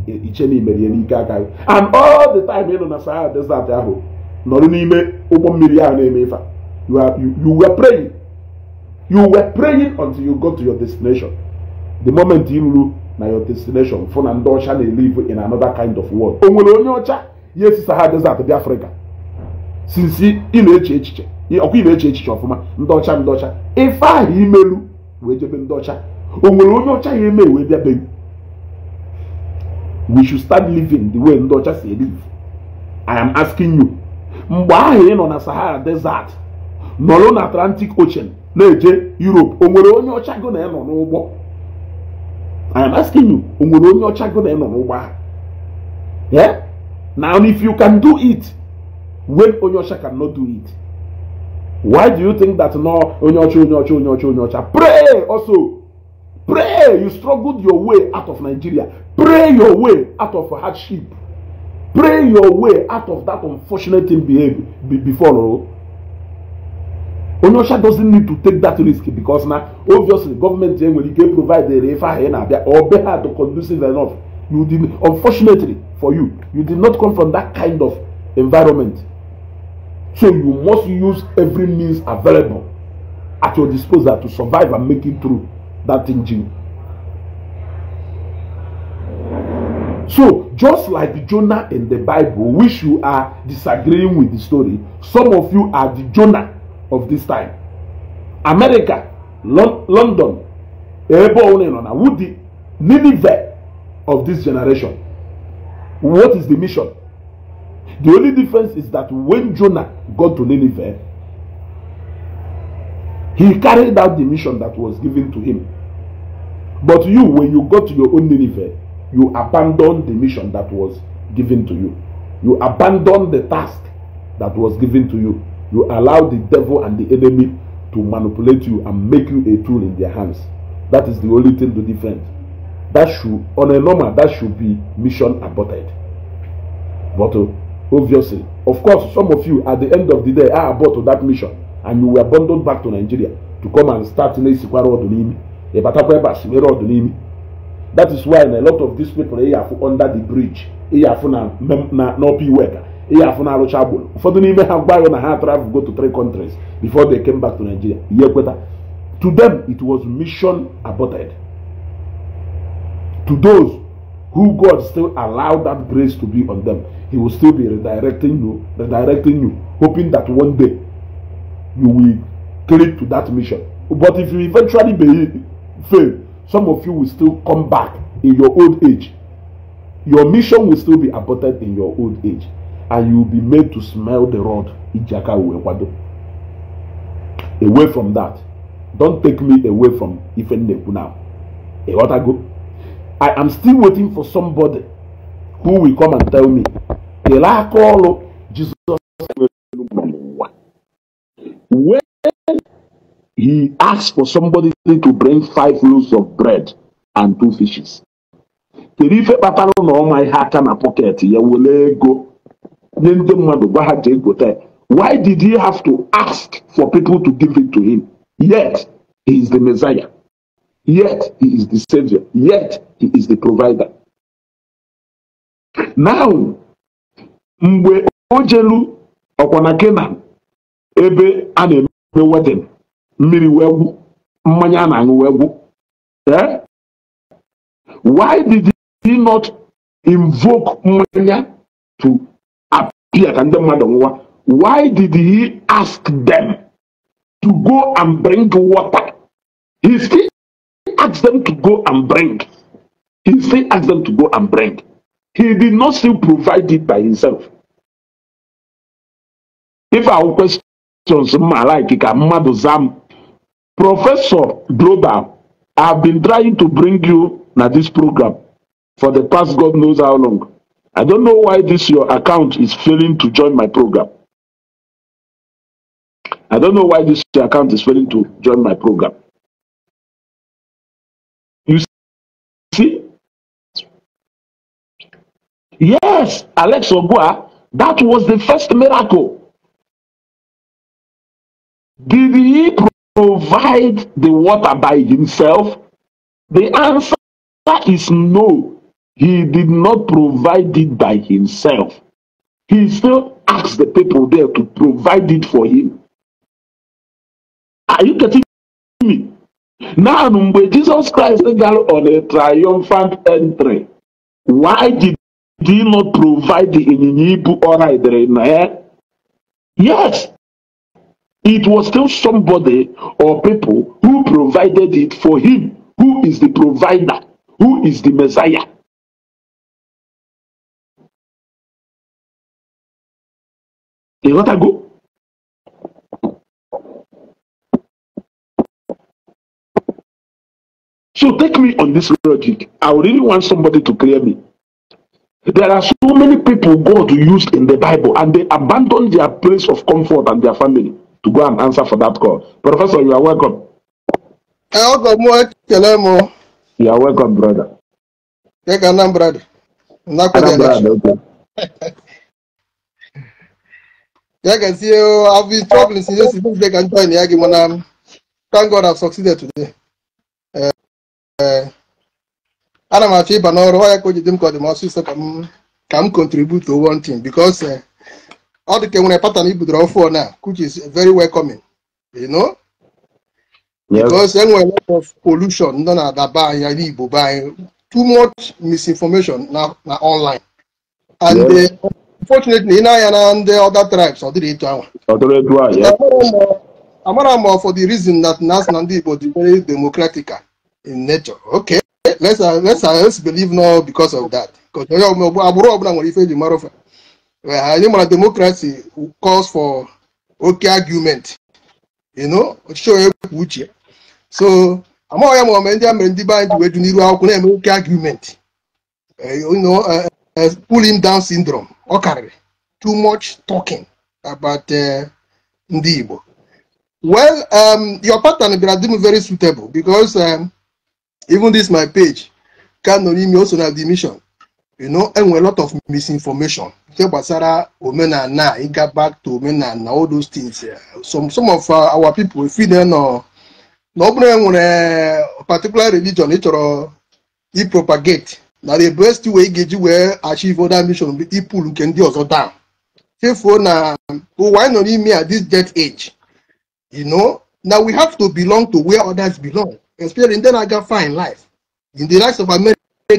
e, iche na and all the time you na sahara that ahụ nọrọ n'ime ụgbọ mmiri ahụ na-eme you, are, you, you were praying you were praying until you got to your destination the moment you ruru na your destination fụ na ndị ọcha na-ele in another kind of world o nwere ihe si saha adịghịzi adịbịa afrịka sinsi ị na-eche echiche ọkwa ị na-eche echiche ọfụma ndị ọcha ndị ọcha ife ahụ imelu wee jebe ndị ọcha o nwere onye ọcha ya eme wee bịa be we should start living the way ndị ọcha si live i am asking you mgbe ahụ ị nọ na sahara desert nọrọ na atlantic ocean na-eje europe o nwere onye ọcha gị na ị nọ n'ụgbọ i am asking you o nwere onye ọcha gị na ị nọ n'ụgbọ ahụ Now, if you can do it, when Onyosha cannot do it, why do you think that no Onyocha, Onyocha, Onyocha, Onyocha? Pray also. Pray. You struggled your way out of Nigeria. Pray your way out of hardship. Pray your way out of that unfortunate thing behavior be, before. Onyosha doesn't need to take that risk because now obviously government when can provide the refa or be hard to conducive enough You did unfortunately for you, you did not come from that kind of environment. So you must use every means available at your disposal to survive and make it through that engine. So, just like Jonah in the Bible, which you are disagreeing with the story, some of you are the Jonah of this time. America, Lon London, Ebo Onenona, Woody, Nineveh, of this generation. What is the mission? The only difference is that when Jonah got to Nineveh, he carried out the mission that was given to him. But you, when you go to your own Nineveh, you abandon the mission that was given to you. You abandon the task that was given to you. You allow the devil and the enemy to manipulate you and make you a tool in their hands. That is the only thing to defend that should on a normal that should be mission aborted but uh, obviously of course some of you at the end of the day are abort that mission and you were bundled back to nigeria to come and start in esikwara ọdụ n'imi ịbatakwa ebe a siwere that is why in a lot of these people ị afụ under the bridge ị afụ na na n'ọpụ iwe ka ị afụ na arụcha agboro ụfọdụ n'ime ha gwa na ha travel go to three countries before they came back to nigeria to them it was mission aborted to those who God still allowed that grace to be on them, He will still be redirecting you, redirecting you, hoping that one day you will click to that mission. But if you eventually be, fail, some of you will still come back in your old age. Your mission will still be aborted in your old age, and you will be made to smell the rod. Away from that. Don't take me away from Ife Neku now. You want go? I am still waiting for somebody who will come and tell me the aka ọrụ Jesus, When he asked for somebody to bring five loaves of bread and two fishes. Kedu ife kpatara na ọma ihe aka na pọket ya were ego Why did he have to ask for people to give it to him? Yet he is the Messiah. Yet he is the savior. Yet he is the provider. Now, mgbe o jelu ebe a na-eme wedin mmiri wee mmanya a na-aṅụ wee gwụ eh? why did he not invoke mmanya to appear ka ndị mmadụ nwụwa why did he ask them to go and bring water he Ask them to go and bring. He still asked them to go and bring. He did not still provide it by himself. If our questions ma like ka mmadụ zam, Professor Global, I have been trying to bring you na this program for the past God knows how long. I don't know why this your account is failing to join my program. I don't know why this your account is failing to join my program. Yes, Alex Ogua, that was the first miracle. Did he provide the water by himself? The answer is no. He did not provide it by himself. He still asked the people there to provide it for him. Are you getting me? Now, when Jesus Christ got on a triumphant entry, why did did not provide the ịnyịnya ibu ọ na ya? Yes, it was still somebody or people who provided it for him, who is the provider, who is the Messiah. Ịghọtago? So take me on this logic. I really want somebody to clear me. There are so many people God used in the Bible and they abandoned their place of comfort and their family to go and answer for that call. Professor, you are welcome. You are welcome, brother. Anam brother. Anam brother, I can see you. I've been struggling since yesterday. They can join the argument. Thank God I've succeeded today. Uh, uh, ana m achọ ịba n'ọrụ ọ ya ka o jide m ka ọ dị m ọsịsọ ka m ka m contribute to one thing because eh, ọ dị ka nwere pattern ibudoro ọfụ na which is very welcoming you know because a lot of pollution nọ na adaba anya n'igbo be anyị too much misinformation na na online and eh, unfortunately ị na-anya na ndị other tribes ọ dịrị etu ahụ amara m for the reason that na ndị igbo dị very democratic in nature okay let's uh, let's uh, let's believe now because of that because agbụrụ ọbụla nwere ife eji mara ofe anyị mara democracy calls for okay argument you know ọchịchị onye kwuo uche so am ya ma ome ndị a mere ndị be anyị ji wee ju n'iru akwụkwọ na-eme oke argument eh, you know eh, eh, pulling down syndrome Okay, too much talking about ndị Igbo well um, your pattern is very suitable because um, Even this my page, Kanonimi also have the mission. You know, and a lot of misinformation. Here Basara, Omenana, it got back to Omenana, all those things. Yeah. Some some of uh, our people, if we don't know, no one a particular religion, it or he propagate. Now the best way get you achieve other mission, people who can do also down. Therefore, now, oh, why not me at this dead age? You know, now we have to belong to where others belong then I got fine life. In the likes of America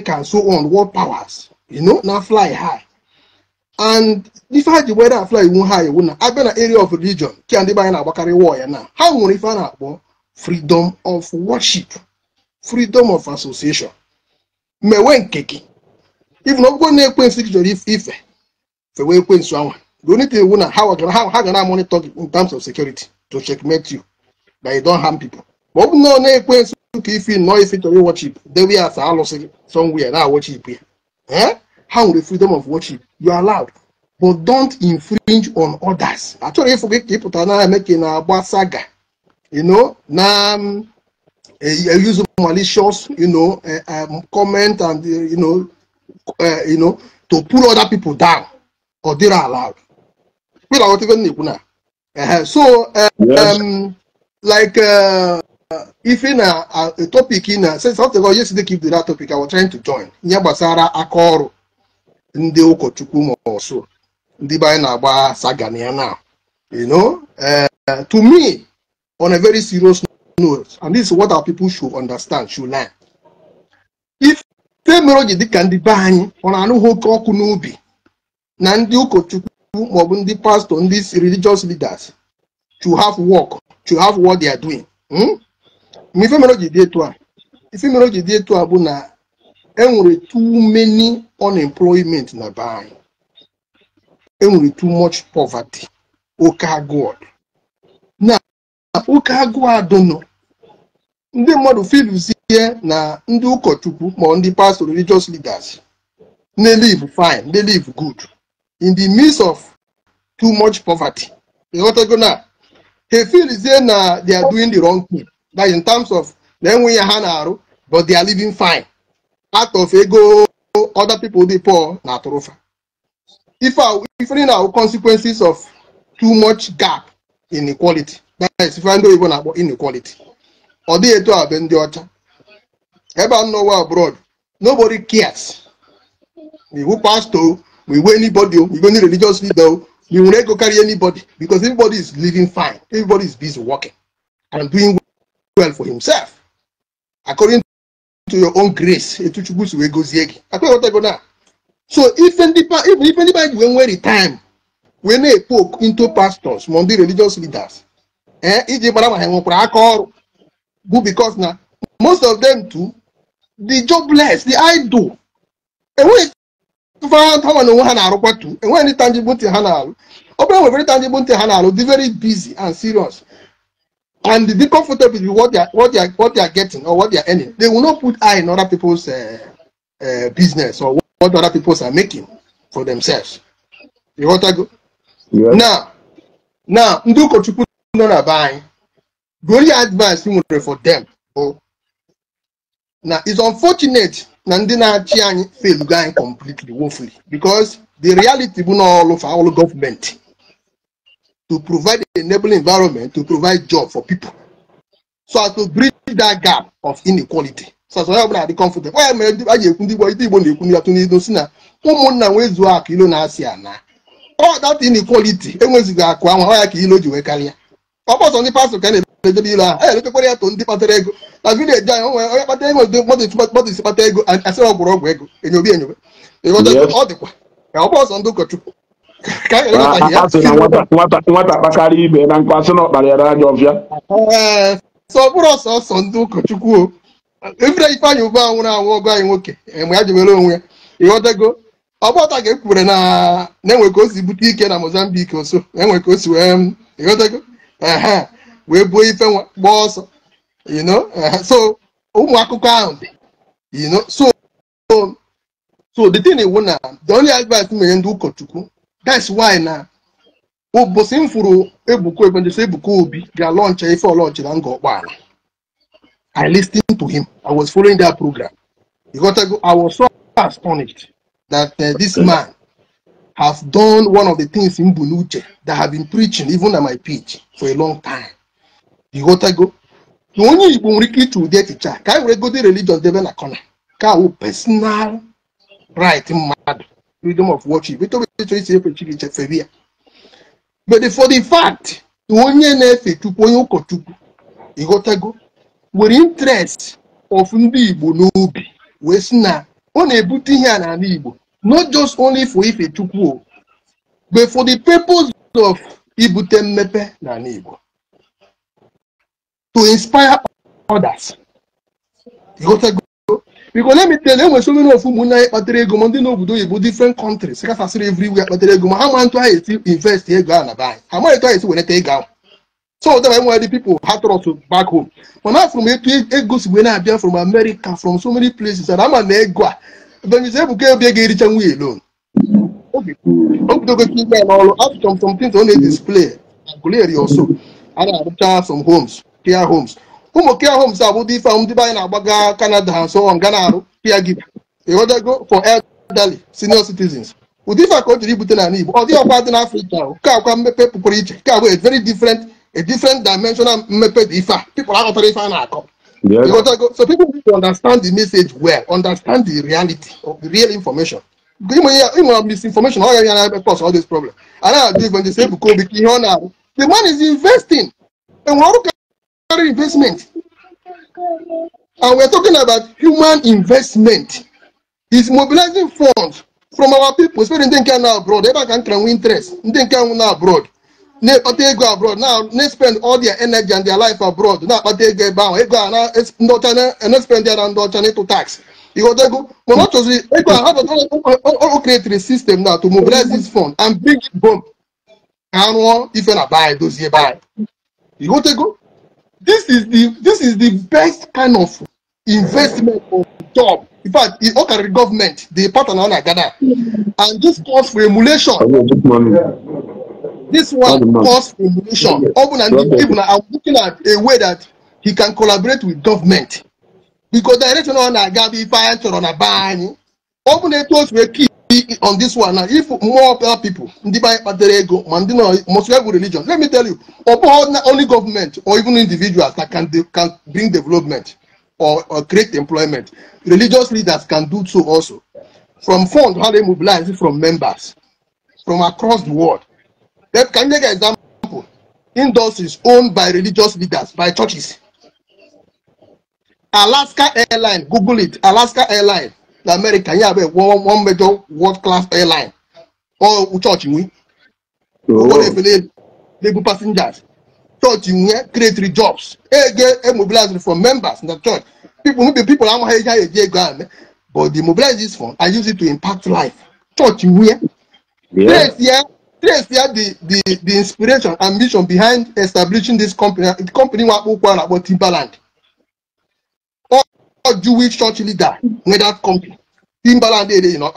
and so on, world powers, you know, now fly high. And if I had whether I fly one high, one, I've been an area of religion, can they buy an Abakari warrior now? How will you find out? Well, freedom of worship, freedom of association. Mewe nkeki. If no go near Queen Six Jolly Ife, the way Queen Swan, the only thing you know how, how, how can I monitor in terms of security to checkmate you that you don't harm people? But no, no, na ọ na-ekwe you ka ife nọọ ife chọrọ iwọchip dewe ya asa alụsị somewhere na-awọchip ya ha the freedom of watching? you are allowed but don't infringe on others achọrọ ịfụ gị ka ị pụta na saga you know na um, eh, use malicious you know eh, um, comment and eh, you know you know to pull other people down they are allowed not even na so um, like uh, ife na topic in a since after all yesterday keep to that topic I was trying to join ihe gbasara aka ọrụ ndị ụkọchukwu ma ọsụ ndị be na-agba sagana ya na you know uh, to me on a very serious note and this is what our people should understand should learn if temero ji dịka ndị be anyị ọ na-anụghị ọkụ n'ubi na ndị ụkọchukwu maọbụ ndị pastor ndị religious leaders to have work to have what they are doing hmm? ife mere o ji dị etu a ife mere o ji dị etu a bụ na enwere too many unemployment na be anyị enwere too much poverty oke agụụ na oke agụụ adụnụ ndị mmadụ ihe na ndị ụkọchukwu ma ndị pastor religious leaders they live fine they live good in the midst of too much poverty ịghọtago na ha filzie na they are doing the wrong thing that in terms of na but they are living fine out of ego other people dị poor na If we find awụ consequences of too much gap inequality that is if I know even about inequality they dịghị to have ndị ọcha ebe a nọwa abroad nobody cares we who through, we wey anybody we go need religious leader we will not go carry anybody because everybody is living fine everybody is busy working and doing well for himself according to your own grace etu chukwu si wee gozie gị akpọghọtago na so ife ndị ife ndị wey wee nwere time wee na-epoke into pastors ma ndị religious leaders ee eh, iji gbara ma ha nwekwara aka ọrụ bụ because na most of them too the jobless the idle enweghị ha na onwe ha na too tu e enweghị ndị tangible ntị ha na-alụ ọ bụla e nwere tangible ntị ha na-alụ dị very busy and serious and the comfortable with what they are what they are what they are getting or what they are earning they will not put eye in other people's uh, uh, business or what, what other people are making for themselves you want to go yes. now now ndị ụkọchukwu nọ na be anyị gori advice nwere for them Oh, now it's unfortunate na ndị na-achị anyị fail anyị completely woefully because the reality bụ na ọlụ for all government to provide an enabling environment to provide job for people so as to bridge that gap of inequality so as to help na-adị comfortable onye mere a ji ekwu ndị igbo ndị igbo na-ekwu ndị atụ n'ido si na ụmụnna nwee zuo akụ ilo na-asị ana ọ dat inequality enwezighị akụ anwa ya ka ilo ji wee karịa ọ bọsọ ndị pastọ ka na-emedobe ilo ahụ a na-eletekwara ya to ndị kpatara ego na vileji anyị onwe onye kpatara enwe mmadụ isi kpata ego asịrị ọgwụrụ ọgwụ ego enyobe enyobe ọ dịkwa ka ọ bọsọ ndị ụkọchukwu nwata akpakarị ibe na nkụ asị na ọkpara ya n'anya ọbịa eh, sọ bụrụ ọsọsọ ndị ụkọchukwu o ifere ifeanyị ugbu a nwụrụ anwụ ọgụ anyị nwoke eh, ma ya jewere onwe ya ịghọtago ọgbọta ga-ekwuwere na na-enwe ka o si bute ike na Mozambique oso enwe ka o si wee mm, ịghọtago ehe wee buo ife gbaa ọsọ you know so ụmụ akụkọ ahụ dị so so the thing wụ na the only advice m enye ndị ụkọchukwu that's why now, na ụbọchị m fụrụ ebuka ebenjesi ebuka obi ga-alọncha ife launch. na nga ọkpọala i listened to him i was following that program You got to go. i was so astonished that uh, this man has done one of the things in Bunuche that have been preaching even at my pitch for a long time. You got to go. The only nwere ike ịchụ ụdị echiche a ka anyị were gote religion debe na kọna ka awụ personal right mad? freedom of worship nítorí ètò ìṣèlú Chineke fere ya but for the fact na onye na-efe chukwu onye ụkọchukwu go nwere interest of ndị Igbo n'obi wee sị na ọ na-ebute ihe a n'ala Igbo not just only for if ife war, but for the purpose of ibute mmepe n'ala Igbo to inspire others go. because let me tell you, when so many of you muna kpatere ego ma ndị na oyibo different countries kachasịrị everywhere kpatere ego ma ha ma ntụ ahụ esi invest ego ahụ na be anyị ha maghị etu ahụ esi weneta ego ahụ so that why the people had to back home mana from ego si wee na-abịa from america from so many places and ama na ego a ebenyize ebuka obi ga ericha nwa elon obidogo ime n'ọrụ after some things ọ na-edisplay and clear your soul a na-arụcha some homes care homes ụmụ kia homes abụdị ife ahụ na na-agbaga Canada so on for elderly senior citizens ụdị ife ka o jiri ibute n'ala Igbo ọ dị ka akwa ka very different a different dimensional dị people na so people need to understand the message well understand the reality of the real information ịnwere misinformation ọ ya na cause all this problem the man is investing monetary investment. And we are talking about human investment. Is mobilizing funds from our people, especially ndị nke na abroad, ebe a ka m nwe interest, ndị nke nwụ abroad, na-ekpata ego abroad, now. na-spend all their energy and their life abroad, na-akpata ego ebe ahụ, ego a na ndị ọcha na-spend eh, their and ndị ọcha n'ịtụ tax. Ịghọta ego, mana ọ chọziri ego a ha o creatiri system now to mobilize this fund and bring it home ka ha rụọ ife na bai dozie bai. Ịghọta ego this is the this is the best kind of investment or job in fact the okare government dey partner on Agada, and this cause for emulation this one cause for emulation and ibuna i'm looking at a way that he can collaborate with government because direction on Agada, be fire to una ban obuna eto osu keep. on this one now if more people ndị banye kpatara ego religion let me tell you ọ only government or even individuals that can, can bring development or, or create employment religious leaders can do so also from funds how they mobilize from members from across the world that can take an example industries owned by religious leaders by churches alaska airline google it alaska airline na America yẹn one one mẹjọ world class airline wọ́n church What oh. if they they legal passengers church we eh, create three jobs e eh, get e eh, mobilize for members in the church people no be people àwọn ẹja ẹjẹ ego àmì but the mobilize this fund I use it to impact life church we. Yes, yeah, yes, yeah. the the the inspiration ambition behind establishing this company the company wa kó kó ara in Timberland. Jewish church leader whether country Timbaland you know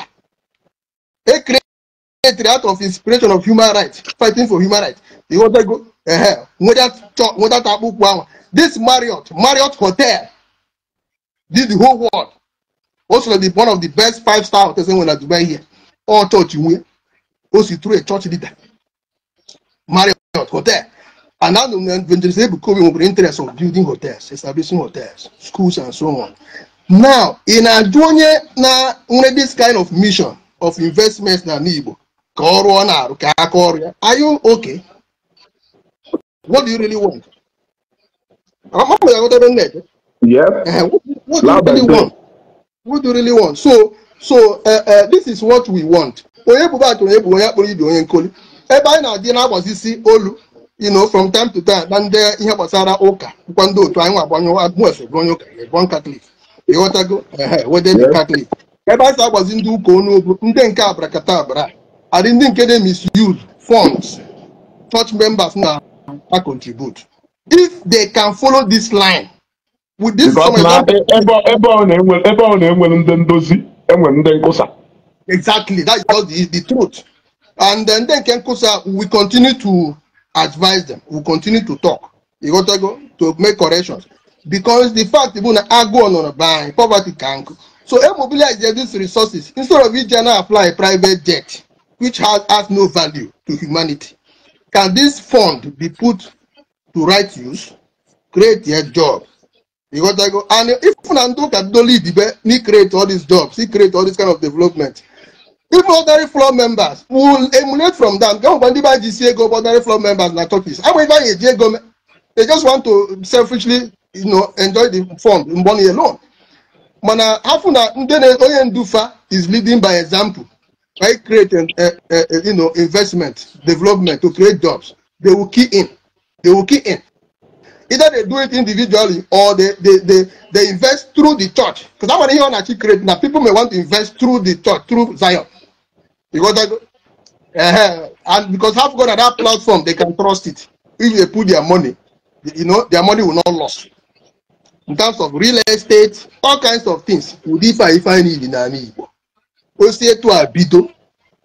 a creator out of inspiration of human rights fighting for human rights he wanted go uh, whether church whether tabu kwama this Marriott Marriott hotel did the whole world also the one of the best five star hotels in Dubai here all church win also through a church leader Marriott hotel And now when they say Bukobi we're interested in building hotels, establishing hotels, schools and so on. Now, in Adonye, now only this kind of mission of investments na Nibo, are you okay? What do you really want? Yep. Uh, what, what do you really want? What do you really want? So, so uh, uh, this is what we want. Onye bụ baatụ onye bụ onye akpọrọ ibe onye nkoli. Ebe anyị na-adị na-agbazisi olu you know from time to time na ndị uh, ihe gbasara ụka bụkwa ndị otu anyị nwa agbanyụwabuefe bụ onye ụka ebon katọlik ịghọtago wede dị katọlik ebe a sa agbazi ndị ụka onye obu ndị nke abarakata abara adị ndị nke dey misuse funds church members now a contribute if they can follow this line with this exactly that is the truth and then uh, nke nkwụsa we continue to advise them we continue to talk you go talk to make corrections because the fact even ago on a buying poverty can so air e mobilize these resources instead of each general apply a private jet which has has no value to humanity can this fund be put to right use create a job you go talk and if una don't kadoli dibe ni create all these jobs he create all this kind of development even ordinary floor members will emulate from them gan wọn buy jí sí ego ordinary floor members na turkeys àwọn ìbá yẹn jí ego they just want to selfishly you know, enjoy the fund the money alone mana hafu na ndị na onye ndufa is leading by example by creating uh, eh, uh, eh, you know, investment development to create jobs they will key in they will key in either they do it individually or they they they, they invest through the church because that one here on actually create now people may want to invest through the church through zion because that, uh, and because have got that platform they can trust it if they put their money you know their money will not lost in terms of real estate all kinds of things ụdị if I need in n'ala Igbo o si etu a bido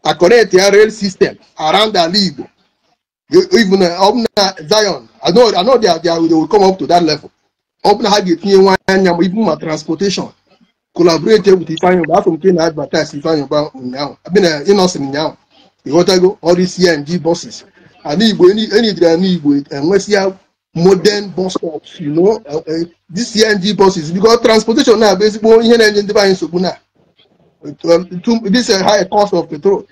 a connect ya rail system around ala Igbo even ọbụna Zion I know, I know they, are, they, are, they will come up to that level ọbụna ha ga-etinye nwa anya ma ibu transportation collaborate with Ifeanyi Oba from Kenya advertise Ifeanyi Oba ụnyaahụ I mean uh, now. Innocent ụnyaahụ ịghọtago all these CMG buses any ana Igbo enyi jiri ana Igbo enwesịa modern bus stops you know uh, uh, these CMG buses because transportation now basically ezigbo ihe na-enye ndị be anyị nsogbu this high cost of petrol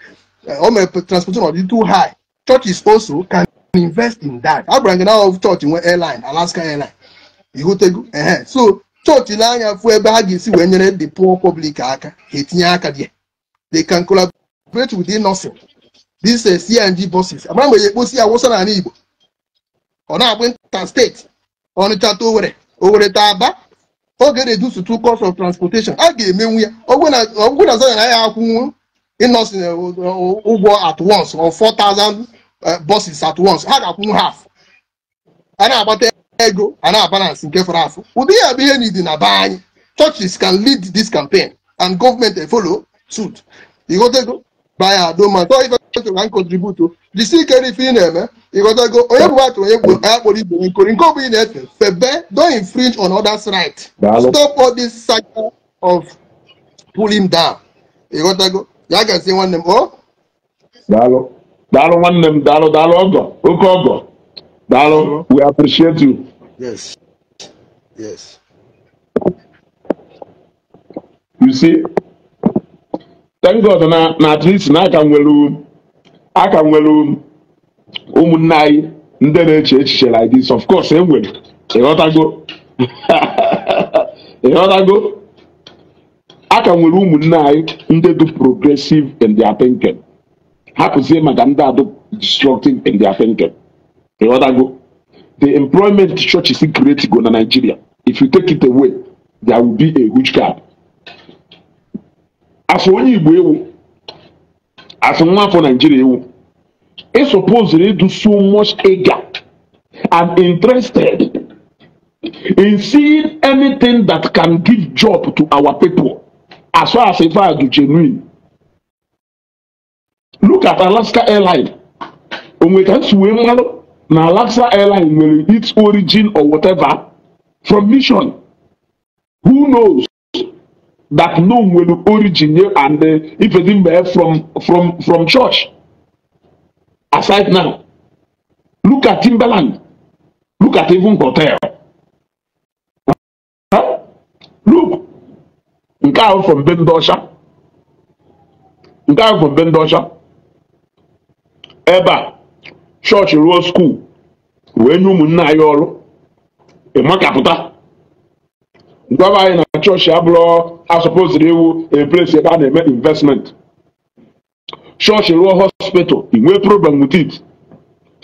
all my transportation is too high churches also can invest in that i agwara gị out of church in one airline Alaska airline You go ịghọtago uh-huh. so chọọchị n'anya fụ ebe ha ga-esi wee nyere the poor public aka ha etinye aka dị they can collaborate with nothing this is CNG bosses amara mgbe ya ekposi ya wụsa n'ala Igbo ọ na-agbụ nta steeti Ọnịcha ta Owere Owere ta Aba oge reduce to cost of transportation a ga-emenwu ya ọgwụ na zana ya akwụnwu ịnọsin eh, ụgwọ at once or 4,000 eh, buses at once ha ga-akwụnwu half a na-agbata ego and na balance nke fọrọ afọ ụdị ya bụ ihe n'idi na be anyị churches can lead this campaign and government dey follow suit ịghọtago baya adoma tọ ifetụrụ na nkontributo jisi ikere ife ị na-eme ịghọtago onye bụ nwatụ onye gbo ya kpọrọ ibe onye nkori nke ọ bụla ị na-efe febe don infringe on others right stop all this cycle of pulling down ịghọtago ya gazie nwanne m o daalụ daalụ nwanne m daalụ daalụ ọgọ oke ọgọ daalụ we appreciate you Yes. Yes. You see, thank God na na at least na aka nwere aka nwere ụmụnne anyị ndị na-eche echiche like this of course e nwere ịghọtago ịghọtago aka nwere ụmụnne anyị ndị dị progressive in their thinking hapụzie maka ndị adụ destructive in their thinking ịghọtago the employment churches he create go na nigeria if you take it away there will be a huge gap afọ onye igbo ewu afọ nwa afọ nigeria ewu e suppose to do so much eager and interested in seeing anything that can give job to our people as far as if i do genuine look at alaska airline onwe ka nsi wee na Lagsa airline nwere its origin or whatever from mission who knows that no nwere origin ye and uh, ifedi mgbe from from from church aside now look at Timberland look at even hotel look nke ahụ from bendosha nke ahụ from be ebe a chọọchị ruo skuul wee nye ụmụnne anyị ọrụ ịmakapụta gwaba anyị na chọọchị abụrụ asọpụziri iwu eplesi ebe a na-eme investment chọọchị ruo hospital inwee problem with it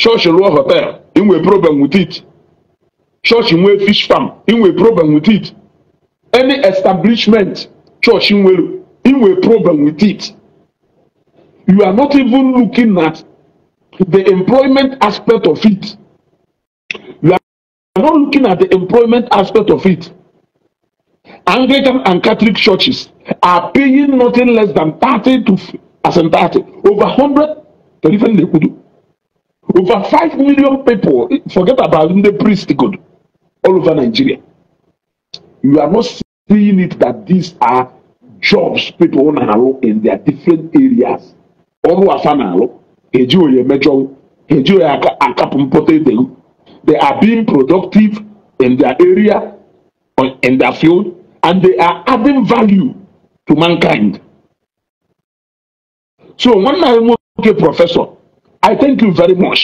chọọchị ruo hotel inwee problem with it chọọchị nwee fish farm inwee problem with it any establishment chọọchị nwere inwee problem with it you are not even looking at the employment aspect of it. You are not looking at the employment aspect of it. Anglican and Catholic churches are paying nothing less than 30 to as in 30, over 100, the different they could do. Over 5 million people, forget about the priest good, all over Nigeria. You are not seeing it that these are jobs people own in their different areas. All who are eji oye mejọwụ eji oye akapụ mpụta they are being productive in their area in their field and they are adding value to mankind so nwanne anyị nwoke prọfesọ i thank you very much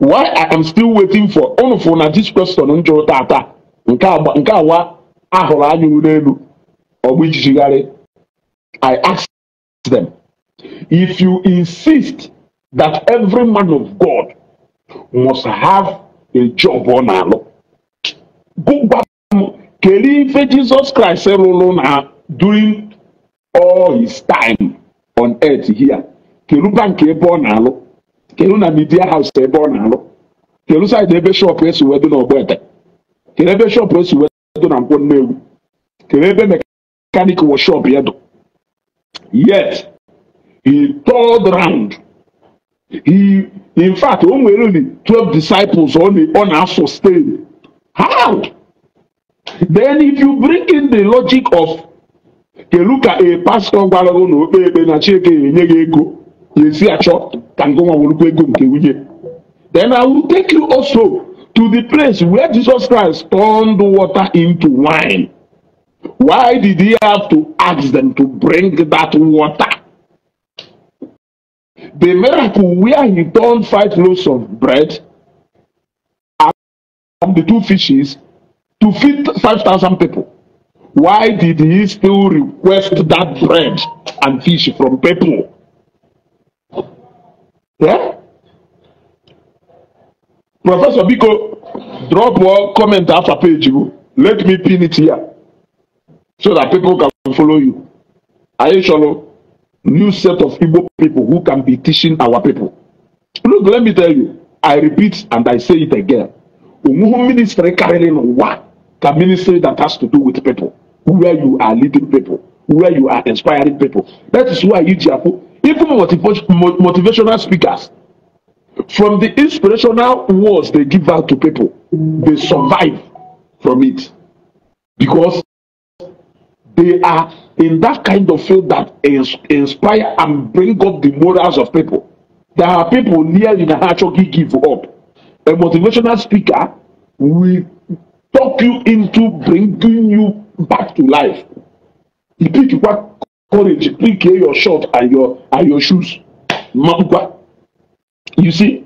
why i am still waiting for unu fụ na this question m jụrụ tata nke agba nke awa ahụrụ anya n'elu ọgbụ ijijigharị i asked them If you insist that every man of God must have a job on na-alụ gụgwa m kelee ife Jesus Christ rụrụ na during all his time on earth here keluba nke ebe ọ na-alụ kelu na media house ebe ọ na-alụ kelu side ebe shop esi wedo na ọgbọete kelu ebe shop esi wedo na nkwọ nnewu kelu ebe mekanik wọ shop ya e yet He turned round. He, in fact, only nwere twelve disciples only the on our sustain. How? Then if you bring in the logic of kedu ka a pastor, gwara gị na okpe ekpe na Chineke enye gị ego ya esi achọ ka nke nwa werukwa ego nke nwunye then I will take you also to the place where Jesus Christ turned water into wine. Why did he have to ask them to bring that water? The miracle where he turned five loaves of bread and the two fishes to feed five thousand people. Why did he still request that bread and fish from people? Yeah? Professor Biko, drop one comment after page. Let me pin it here so that people can follow you. Are you sure? new set of Igbo people who can be teaching our people. Look, let me tell you, I repeat and I say it again. Umuhu ministry carrying what? The ministry that has to do with people, where you are leading people, where you are inspiring people. That is why Ijiapu, even motivational speakers, from the inspirational words they give out to people, they survive from it because they are in that kind of field that inspire and bring up the morals of people. There are people near in Achoki give up. A motivational speaker will talk you into bringing you back to life. He pick you up courage, he pick your shirt and your and your shoes. You see,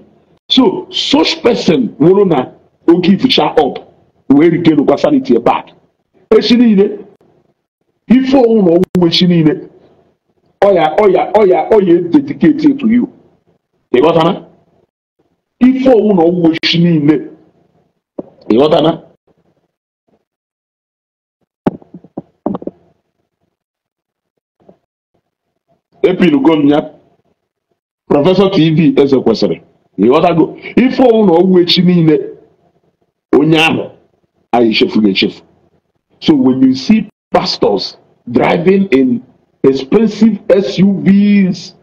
so such person, na, will give you up. Where regain get sanity back. Especially Actually, ife onwu na onwunwe chi niile ọya ọya ọya ọya dediketi etu you ịghọtana ife onwu na onwunwe chi niile ịghọtana epilugo m ya prọfesọ tv eze kwesịrị ịghọtago ife onwu na onwunwe chi niile onye ahụ anyị echefughị echefu so when you see pastors driving in expensive SUVs,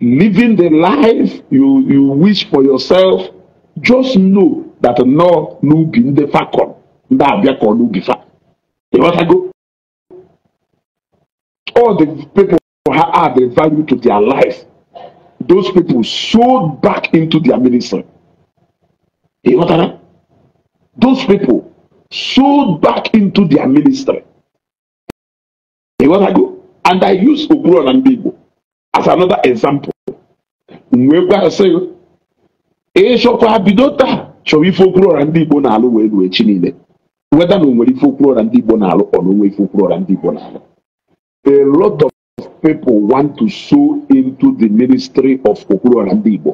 living the life you, you wish for yourself, just know that no nubi ndefa kon. Nda abia kon nubi fa. You want to go? All the people who add the value to their life. Those people sold back into their ministry. You want to Those people Sold back into their ministry. You know what I do? and I use Oburon and Bibo as another example. Mgbe sị ịchọkwa bido taa chọrọ ife okwu ọra ndị Igbo na-alụ wee ruo echi niile weda na o nwere ife okwu ọra ndị Igbo na-alụ ọ na onwe ife okwu ọra ndị Igbo na-alụ. A lot of people want to sow into the ministry of Okwuruọra ndị Igbo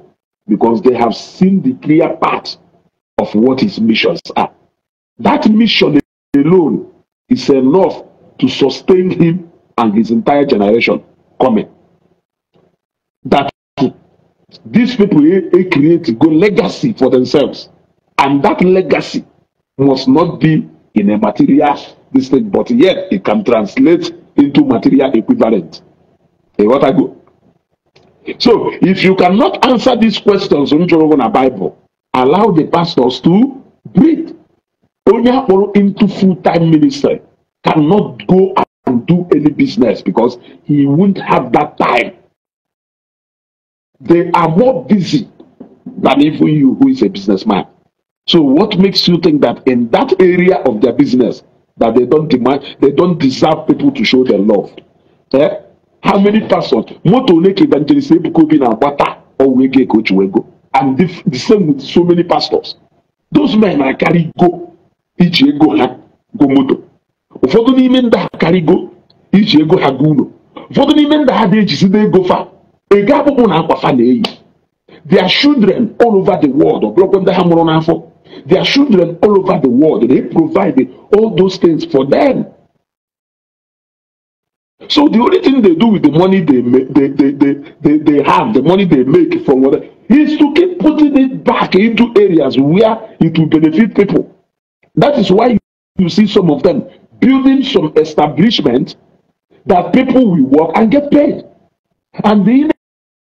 because they have seen the clear path of what his missions are. That mission alone is enough to sustain him and his entire generation coming. That these people he, he create good legacy for themselves, and that legacy must not be in a material this but yet it can translate into material equivalent. A what I go. So if you cannot answer these questions on Bible, allow the pastors to breathe onye akpọrọ into full time ministry cannot go and do any business because he won't have that time. They are more busy than even you, who is a businessman. So, what makes you think that in that area of their business that they don't demand, they don't deserve people to show their love? Eh? How many persons? Moto Lake evangelist Ebukobi na Agbata or Wege go, And the, same with so many pastors. Those men are carry go. iji ego ha go moto ụfọdụ n'ime ndị ha karịgo iji ego ha go ụlọ ụfọdụ n'ime ndị ha na-ejizide ego fa ego akpụkpụ na akwa fa na-eyi their children all over the world ọbụrụkwa ndị ha mụrụ n'afọ their children all over the world they provide all those things for them so the only thing they do with the money they they they they they, they have the money they make from is to keep putting it back into areas where it will benefit people That is why you see some of them building some establishment that people will work and get paid. And the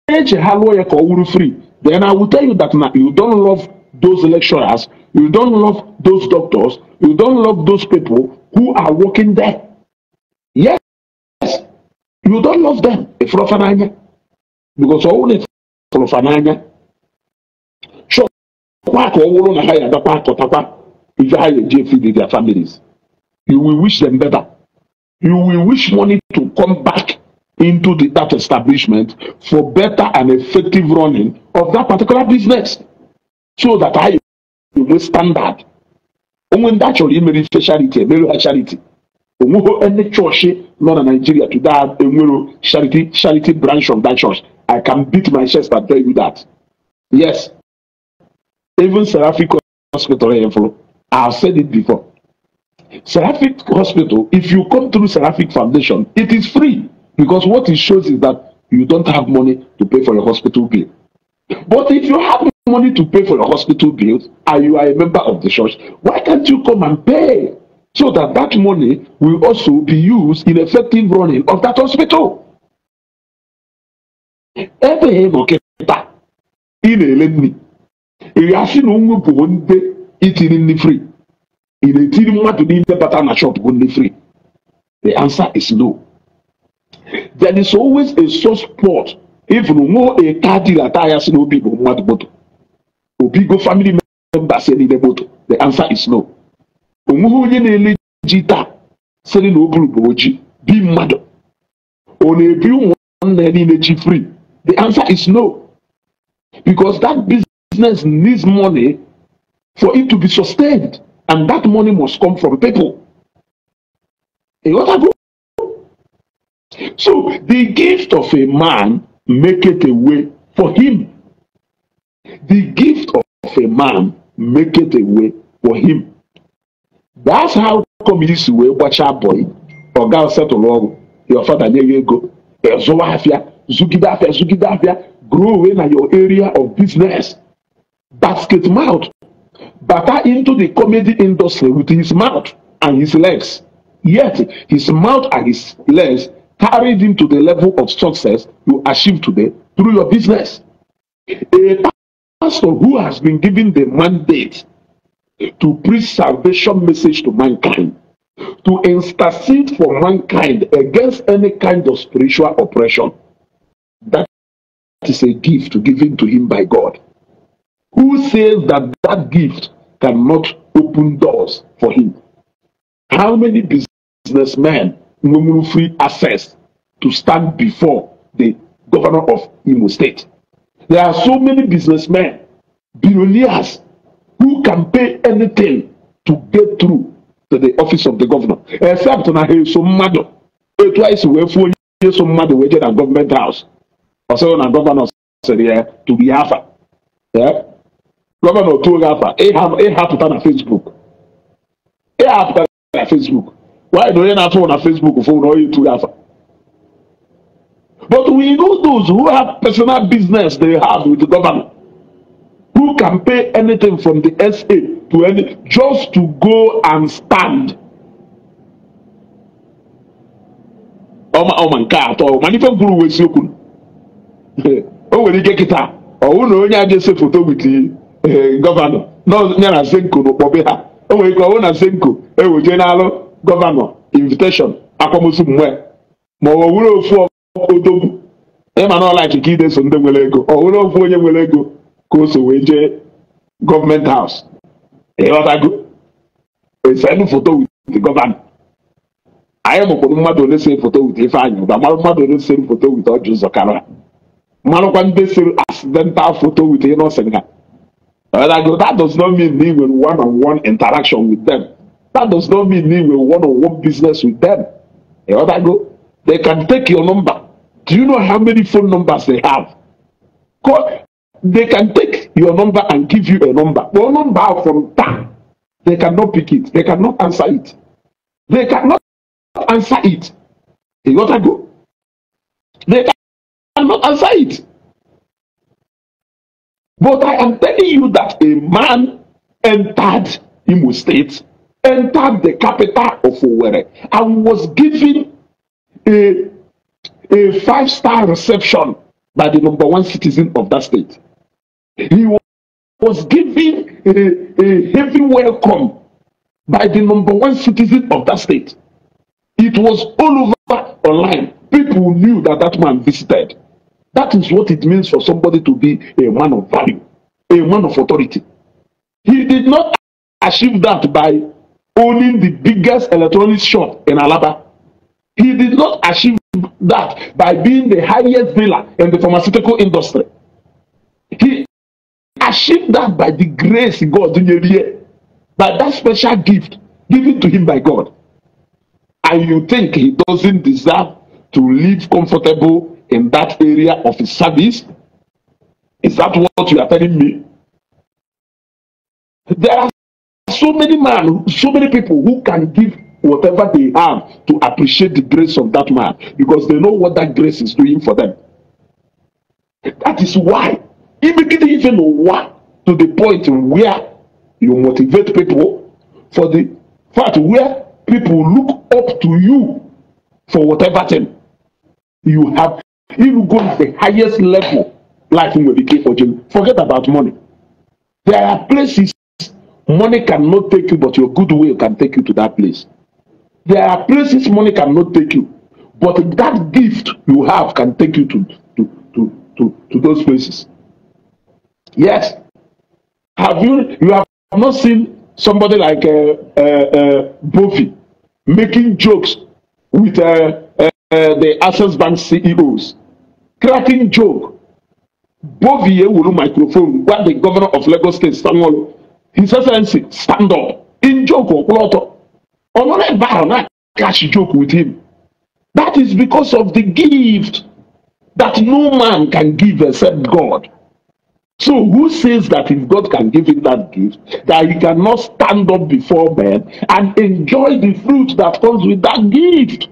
image Haloyeko will free. Then I will tell you that now you don't love those lecturers, you don't love those doctors, you don't love those people who are working there. Yes, yes, you don't love them. Because only So, kwa ka ọ wụrụ na ha ya adakwa akọtakwa If Yahya JFD, e their families. You will wish them better. You will wish money to come back into the, that establishment for better and effective running of that particular business. So that I will standard. Onwe ndị achọrọ imere ife charity a ha charity. Onweghị any church nọ na Nigeria to that charity charity branch of that church. I can beat my chest and tell you that. Yes. Even Seraphic Hospital here eh, for I've said it before. Seraphic Hospital, if you come through Seraphic Foundation, it is free because what it shows is that you don't have money to pay for your hospital bill. But if you have money to pay for your hospital bills and you are a member of the church, why can't you come and pay so that that money will also be used in effective running of that hospital? Ebe ịnọ kịta na-ele nri ndị itiri nri free In a ìrètí mmadụ niile bata na shop go ndị free the answer is no there is always a soft spot even nwụọ a car dealer taa ya si na obi bụ mmadụ moto obi go family members ya niile moto the answer is no onweghị onye na-ele ji taa sịrị na oburu bụ oji bi mmadụ ọ na-ebi ụmụnna ya niile ji free the answer is no because that business needs money for it to be sustained. And that money must come from people. You got that? So the gift of a man make it a way for him. The gift of a man make it a way for him. That's how come this way gbacha boy or ọga setụlụ ọrụ your father nye ya ego eh, zụwa afịa zụgide afịa zụgide afịa grow away na your area of business basket mouth butter into the comedy industry with his mouth and his legs. Yet his mouth and his legs carried him to the level of success you achieve today through your business. A pastor who has been given the mandate to preach salvation message to mankind, to intercede for mankind against any kind of spiritual oppression. That is a gift given to him by God. who says that that gift cannot open doors for him? How many businessmen will free access to stand before the governor of Imo State? There are so many businessmen, billionaires, who can pay anything to get through to the office of the governor, except na he so mad, etu anyị si wee fụọ so mmadụ wee jee na gọọmenti haus ọsọ na gọvanọ sịrị ya tụrụ ya afa gọvanọ tuoro afa ịhapụta na fesbuk ịhapụta na fesbuk nwaanyị na onye na-atụ na fesbuk fụ na onye tụrụ afa But we know those who have personal business they have with the government. who can pay anything from the SA to any just to go and stand. ọma ọma nke atọ mana ife kwuru wee siokwu o nwere ike kịta ọ hụ na onye a ga-ese foto wit Eh, gọvanọ nọ ya na zenko n'ụkpọbe ha o nwere ike ọwụ na zenko ewejee n'alụ gọvanọ inviteshọn akwamozu mgbe ma ọ were ofu odogwu ịma na ọlaiki ka ideso ndị nwere ego ọ were ofu onye nwere ego ka o so wee jee gọọmenti haus ịghọtago esenu foto wit gọvanọ anyị mụkwụrụ mmadụ ole sere foto wit ifeanyị ụba marụ mmadụ ole sere foto wit ọjị ụzọ karịa marụkwa ndị sere accidental foto wit ịnọsịn ha And I go, that does not mean me with one on one interaction with them. That does not mean me with one on one business with them. You know, what I go, they can take your number. Do you know how many phone numbers they have? Call, they can take your number and give you a number. Your number from town, they cannot pick it. They cannot answer it. They cannot answer it. You know, what I go. They cannot answer it. But I am telling you that a man entered Imo State, entered the capital of Owerri, and was given a, a five star reception by the number one citizen of that state. He was given a, a heavy welcome by the number one citizen of that state. It was all over online. People knew that that man visited. That is what it means for somebody to be a man of value, a man of authority. He did not achieve that by owning the biggest electronics shop in Alaba. He did not achieve that by being the highest dealer in the pharmaceutical industry. He achieved that by the grace God gave him, by that special gift given to him by God. And you think he doesn't deserve to live comfortable in that area of his service? Is that what you are telling me? There are so many men, so many people who can give whatever they have to appreciate the grace of that man because they know what that grace is doing for them. That is why immediately even what to the point where you motivate people for the fact where people look up to you for whatever thing you have If you go to the highest level, like in Medicare for jail, forget about money. There are places money cannot take you, but your good will can take you to that place. There are places money cannot take you, but that gift you have can take you to, to, to, to, to those places. Yes. Have you you have not seen somebody like uh, uh, uh, Bofi making jokes with uh, uh, the Access Bank CEOs? cracking joke. Bovie Wulu microphone, what the governor of Lagos State, Stanwolo, His Excellency, stand up. In joke or plot. Honorable Barona catch joke with him. That is because of the gift that no man can give except God. So who says that if God can give him that gift, that he cannot stand up before men and enjoy the fruit that comes with that gift?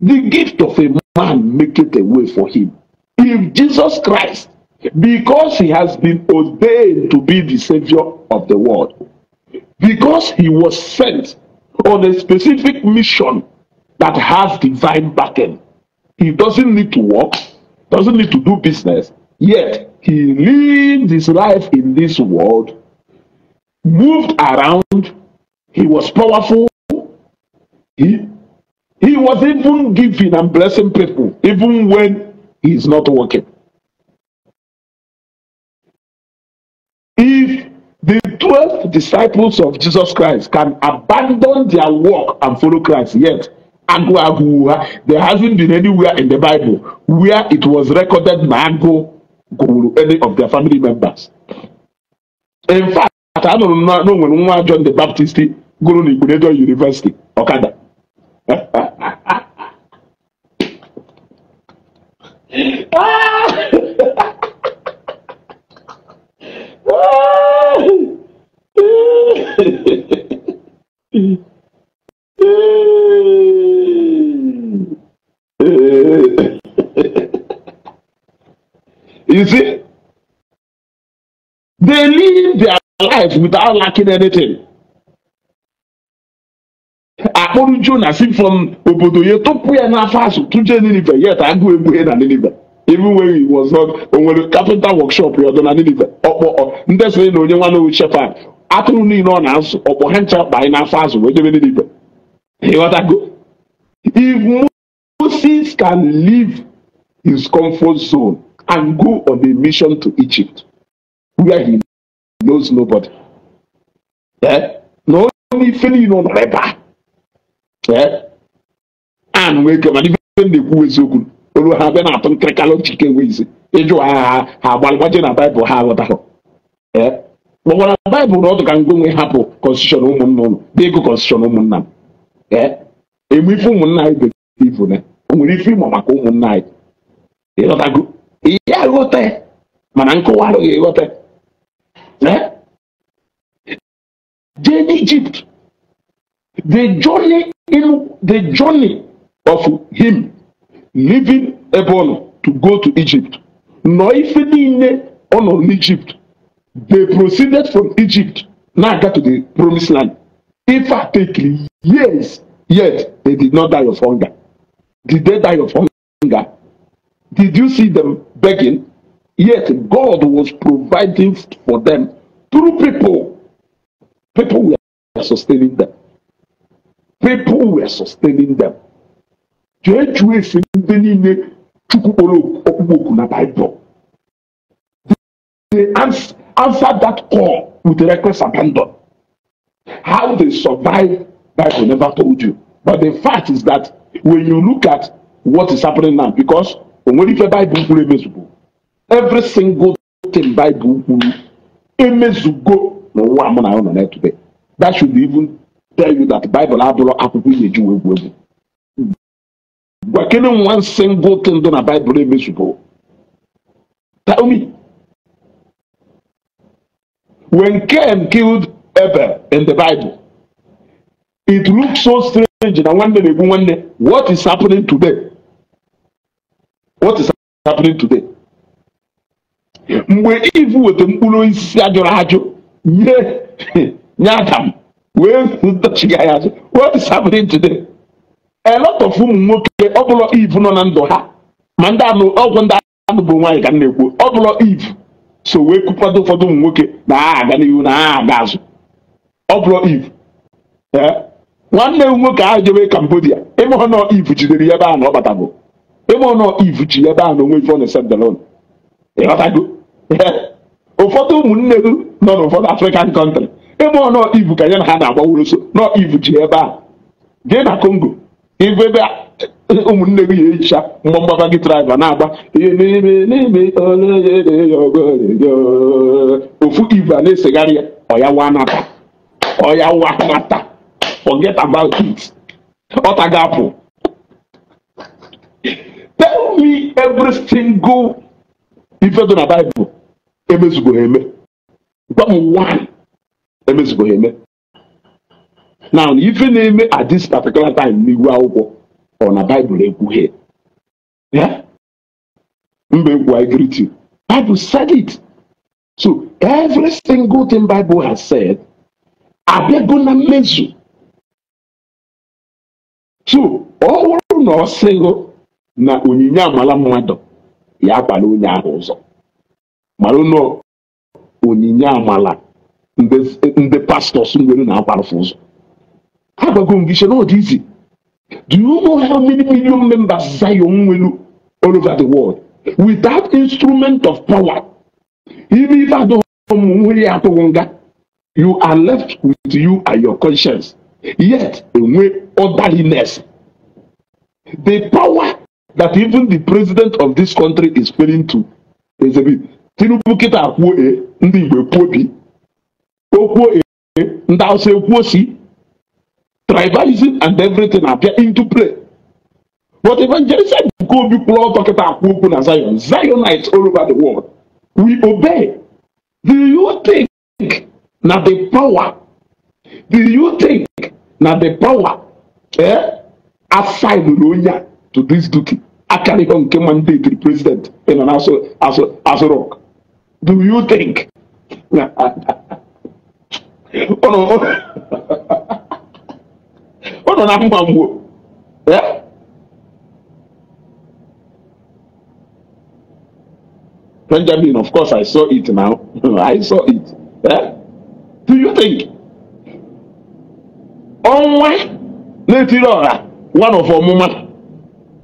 The gift of a man maketh a way for him. If Jesus Christ, because he has been ordained to be the Savior of the world, because he was sent on a specific mission that has divine backing, he doesn't need to work, doesn't need to do business, yet he lived his life in this world, moved around, he was powerful, he He was even giving and blessing people, even when he is not working. If the 12 disciples of Jesus Christ can abandon their work and follow Christ, yet there hasn't been anywhere in the Bible where it was recorded Mango Guru, any of their family members. In fact, I don't know when joined the Baptist Guru Nigunedo University, Okada. you see, they live their life without lacking anything. akpọrọ Jona si from obodo ya tupu ya n'afọ asụ tụje Ninive yet agụ egbuhe na Ninive even when he was not onwere kapịnta wọkshọp ya ọdọ na ninive ọkpọ ndị sonye na onye nwa n'owu chefa atụrụ niile ọ na-azụ ọkpọ ha ncha ọkpa anyị n'afọ azụ wee jebe ninive go. if moses can leave his comfort zone and go on a mission to egypt where he knows nobody eh? na onye ife niile ọ nọrọ ebe a eh? and wee kemana ife na-ekwu eziokwu olu ha bịa na-atụ nkịrịkalụ jike enwe ịjụ agha ha ha agbalịgbaje na baịbụl ha aghọtahụ kpọkwara baịbụl na ọdụ ka ngwa hapụ kọnstitushọn ụmụnna ụlọ dị ego kọnstitushọn ụmụnna m eme ife ụmụnna anyị bekee ifu na o nwere ife ịmụ maka ụmụnna anyị ịghọtago ihe aghọta mana nkụwa arụghị ịghọta jee n'ijipt the journey in the journey of him leaving ebe ọ nọ to go to Egypt nọ ife niile ọ nọ n'Egypt they proceeded from Egypt na-aga to the promised land ife a take years yet they did not die of hunger did they die of hunger did you see them begging yet God was providing for them through people people were sustaining them people were sustaining them jee chụọ ife niile chukwu kpọrọ ọkpụkpọ oku na baịbụl they answered that call with reckless abandon how they survive bible never told you but the fact is that when you look at what is happening now because onwere ife baịbụl kwuru emezugo every single thing Bible kwuru emezugo n'ụwa mụ na ya nọ na that should even tell you that bible abụrụ akwụkwọ ị na-eji wee egwu egwu Quickening one single thing than a Bible invisible. Tell me. When Cain killed Abel in the Bible, it looks so strange. And I wonder, I wonder what is happening today. What is happening today? mgbe ivu weta mkpụrụ isi ajụrụ ajụ nye nye adam wee dochiga ya azụ what is happening today a lot of ụmụ nwoke ọ iv nọ na ndụ ha ma ndị anụ ọgwụ ndị anụ bụ nwaanyị ka m na-ekwu ọ iv so wee kwukwado ụfọdụ ụmụ nwoke na ha aga n'ihu na ha aga azụ ọ bụrụ iv nwanne m nwoke ahụ jebe kambodia ịmụọ iv jidere ya ebe ahụ na ọ batabụ ịmụọ iv ji ya ebe ahụ na onwe ife ọ na-ese ịghọtago e, ụfọdụ ụmụnne m nọ n'ụfọdụ African country ịmụọ iv ka ya na ha na-agbaworoso nọ iv ji ebe ahụ gị na kongo. igwe ebe ụmụnne gị ga-ehicha mgbọ mgbaba gị traịba na-agba ihe n'ime n'ime ofu ibe a na-esegharị ya ọya wanata ọya wanata forget about it ọta ga-apụ tell me every single ife dị na baịbụl emezugo eme gwa m one emezugo eme now ife na-eme at this particular time n'ihu akwụkwọ ọ na bible ekwughe ya mba ekwu I Bible said it so every single thing Bible has said abịago na mmezu so ọ bụrụ na ọ sịghị na onyinye amala mmadụ ya akwala onye ahụ ụzọ mara na onyinye amala ndị pastọs nwere na-akwarụ ụzọ Agwagongishia, not easy. Do you know how many million members Zion will all over the world? Without instrument of power, even if I don't you are left with you and your conscience. Yet, with orderliness, the power that even the president of this country is failing to exhibit. Tinubu kita kwuo e ndị Igbo kwuo bi, o kwuo e ndị Hausa ekwuo si tribalism and everything appear into play. But evangelism go be close talking about people and Zion. Zionites all over the world. We obey. Do you think now the power? Do you think now the power eh, assigned Lunya to this duty? Akari nke mandate to the president you know, as, a, as, rock. Do you think? Oh, nọ na mma mgbo Benjamin, of course, I saw it now. I saw it. Eh? Do you think? Ọnwa na-etiri ọha one of ọmụma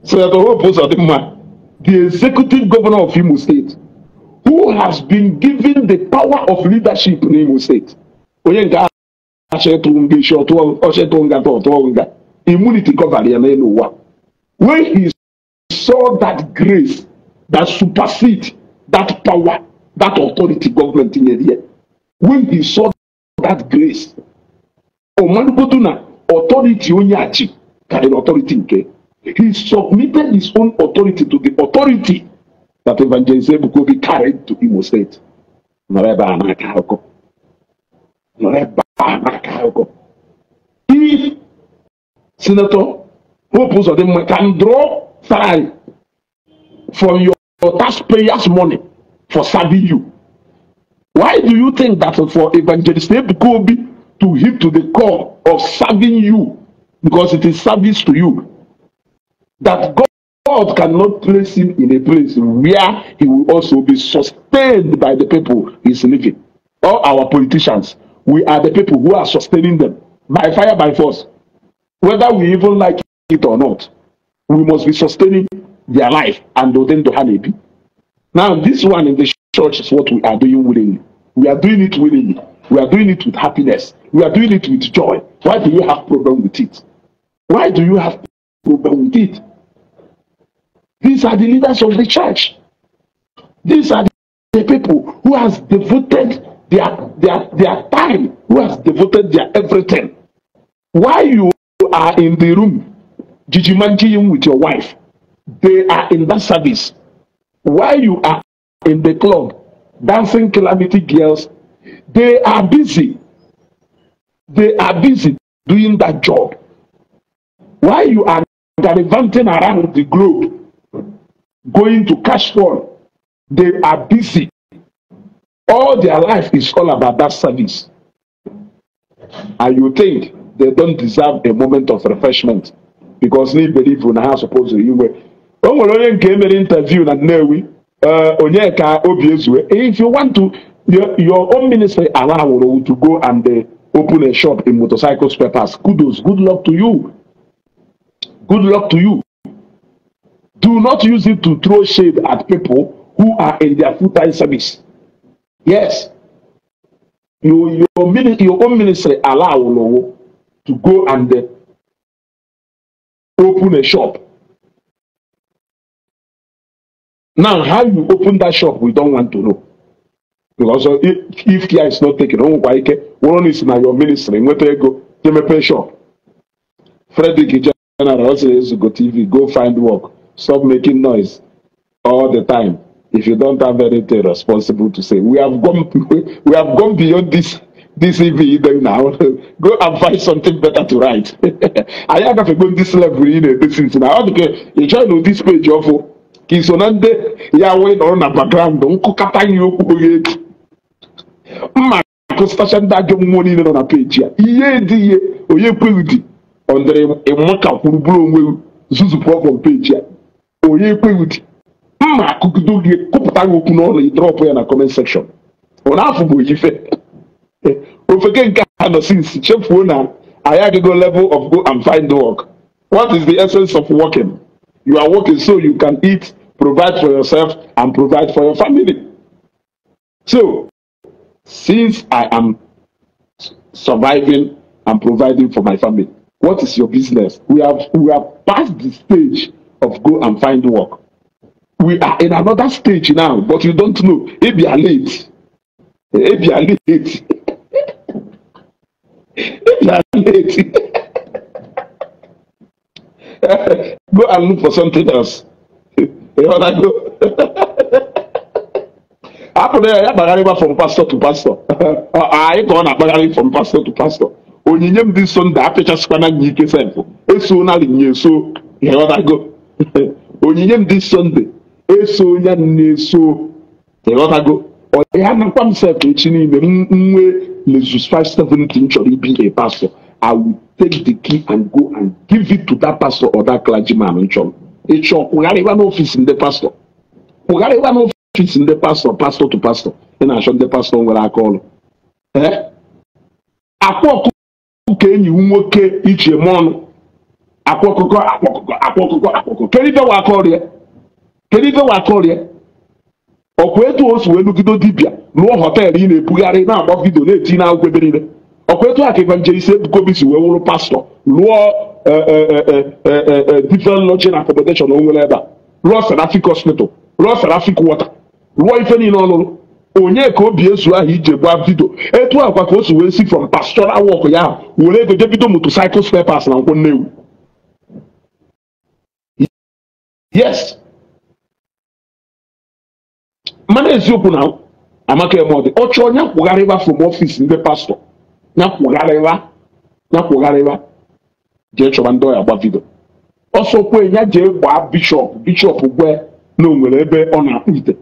so that Hope Uzodinma, the executive governor of Imo State, who has been given the power of leadership in Imo State, onye nke ashetụnga shetụnga immunity covered ya n'elu ụwa when he saw that grace that supersede that power that authority government nyere ya when he saw that grace ọmalụgodu na authority onye a ji karịrị authority nke he submitted his own authority to the authority that evangelist be carried to imo state nọrọ ebe a na-aka akụkọ reba akago he senator hope uzodinma can draw time from your, your taxpayers money for serving you why do you think that for evangelist Kobe to hit to the core of serving you because it is service to you that god God cannot place him in a place where he will also be sustained by the people he's living. All our politicians, we are the people who are sustaining them by fire, by force. Whether we even like it or not, we must be sustaining their life and then to honeybee. Now, this one in the church is what we are doing willingly. We are doing it willingly. We are doing it with happiness. We are doing it with joy. Why do you have problem with it? Why do you have problem with it? These are the leaders of the church. These are the people who has devoted their their their time who has devoted their everything Why you are in the room jijimanjiyin with your wife they are in that service Why you are in the club dancing calamity girls they are busy they are busy doing that job Why you are gallivanting around the globe going to cash for? they are busy All their life is all about that service. And you think they don't deserve a moment of refreshment because they believe in how supposed to you o nwere onye nke an interview na Nnewi uh, onye ka obi ezue if you want to your, your own ministry allow you to go and uh, open a shop in motorcycle spare parts kudos good luck to you good luck to you do not use it to throw shade at people who are in their full-time service Yes, your your mini, your own ministry allow Olowo to go and uh, open a shop. Now, how you open that shop, we don't want to know. Because uh, if, if care is not taken, oh, why care? One is now your ministry. Where do you go? You may pay shop. Frederick General also used go TV, go find work. Stop making noise all the time. if you don't have anything responsible to say, we have gone we have gone beyond this this e EV then now. Go and find something better to write. I have to go this level in this is now. Okay, you try to this page of oh, ka iso na ndị ya wee nọrọ na background nkụkọta ihe okwu oge eji mma kụstacha ndị ajọ mmụọ niile nọ na page ya ihe dị ihe onye kweghị dị ọ dịrị e ịmaka kwuru bụrụ onwe zuzupụ ya onye m ma akụgide oge kụpụta gị okwu n'ọnụ ị drọpụ ya na kọment sekshọn ọ na-afụ bụ oyife ofeke nke a nọ since chefuo na anyị agago level of go and find work what is the essence of working you are working so you can eat provide for yourself and provide for your family so since i am surviving and providing for my family what is your business we have we have passed the stage of go and find work we are in another stage now but you don't know ebia late ebia late ebia late go and look for something else you wanna go akụrụ ya ya kpagharịba from pastor to pastor anyị ka ọ na-akpagharị from pastor to pastor onyinye m dị nso nda apịchasịkwana gị ike sefụ eso na nye so go. onyinye m dị sọnde eso ya na-eso ịghọtago ọya nakwa m sef echi niile nwe lezus m chọrọ ibi a pastor i will take the key and go and give it to that pastor or that clergyman nchọrọ ịchọ kwụgharịwa n'ofisi ndị pastor kwụgharịwa n'ofisi ndị pastor pastor to pastor ị na-achọ ndị pastor nwere aka ọrụ eh? akwa ọkụkọ ka enyi nwoke ichie ọnụ. akwa ọkụkọ akwa ọkụkọ akwa ọkụkọ akwa ọkụkọ kedu ibe wa aka ọrụ ya kedu ife nwa akọrịa ọkwa etu o si wee nugide dibịa lụọ họteelụ ị na-ebugharị na-agba vidio na-eti na akwụkwọ ebe niile ọkwa etu a ka evangelist Ebukobi si wee wụrụ pastọ lụọ e, e, e, different lodging and onwere o nwere ebe a lụọ Serafik hospital lụọ Serafik Wọta, lụọ ife niile ọlụrụ onye ka obi ezu ahụ ije gba vidio etu akwa ka o si wee si from pastoral work ya ahụ were ego jebido motorcycle spare na nkwụ nnewu yes mana eziokwu na amaka emọdị ọ chọọ nya kwụgharịwa from ọfịs ndị pastọ nya kwụgharịwa nya kwụgharịwa jee chọba ndị ọya gba vidio ọsọ ya jee gbaa bishọp bishọp gwe na ebe ọ na-akpụ ite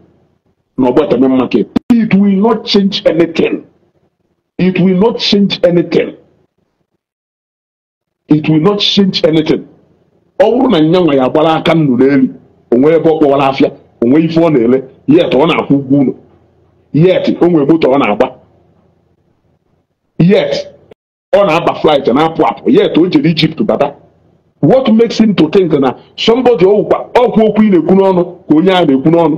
na ọgbọ eteme market it will not change anything it will not change anything it will not change anything ọ bụrụ na nyanwa ya gbara aka nnụ n'elu o ebe ọ kpọwara afịa onwe ife ọ na-ele yet ọ na-akwụ ụgwọ ụlọ yet o nwere moto ọ na-agba yet ọ na-aba a na-apụ apụ yet o jere Ijipt bata what makes him to think na somebody ọwụkwa ọkwụ okwu ị na-ekwu n'ọnụ ka onye ahụ na-ekwu n'ọnụ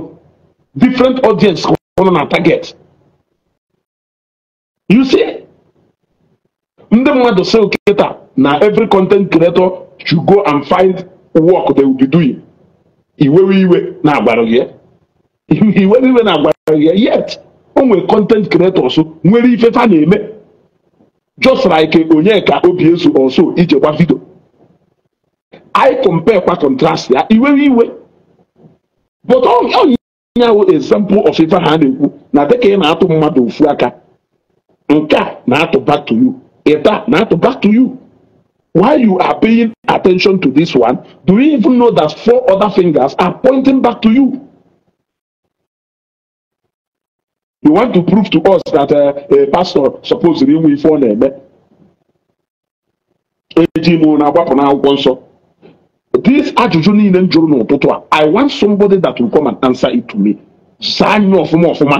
different audience ka ọ nọ na target you see ndị mmadụ sị oketa na every content creator should go and find work they will be doing iwewe iwe na-agbarụ gị iwewe iwe na yet o nwere content nwere ife fa na-eme just like onye ka obi eso ọsọ ije gba vidio anyị compare kwa contrast ya iwewe iwe but onye nyawo example of ife ha na-ekwu na dịka ị na-atụ mmadụ ofu aka nke a na-atụ back to you ịta na-atụ back to you while you are paying attention to this one, do you even know that four other fingers are pointing back to you? You want to prove to us that uh, a pastor supposedly we phone him. This ajụjụ niile m jụrụ n'ụtụtụ a I want somebody that will come and answer it to me. Zaa nye ọfụma ọfụma.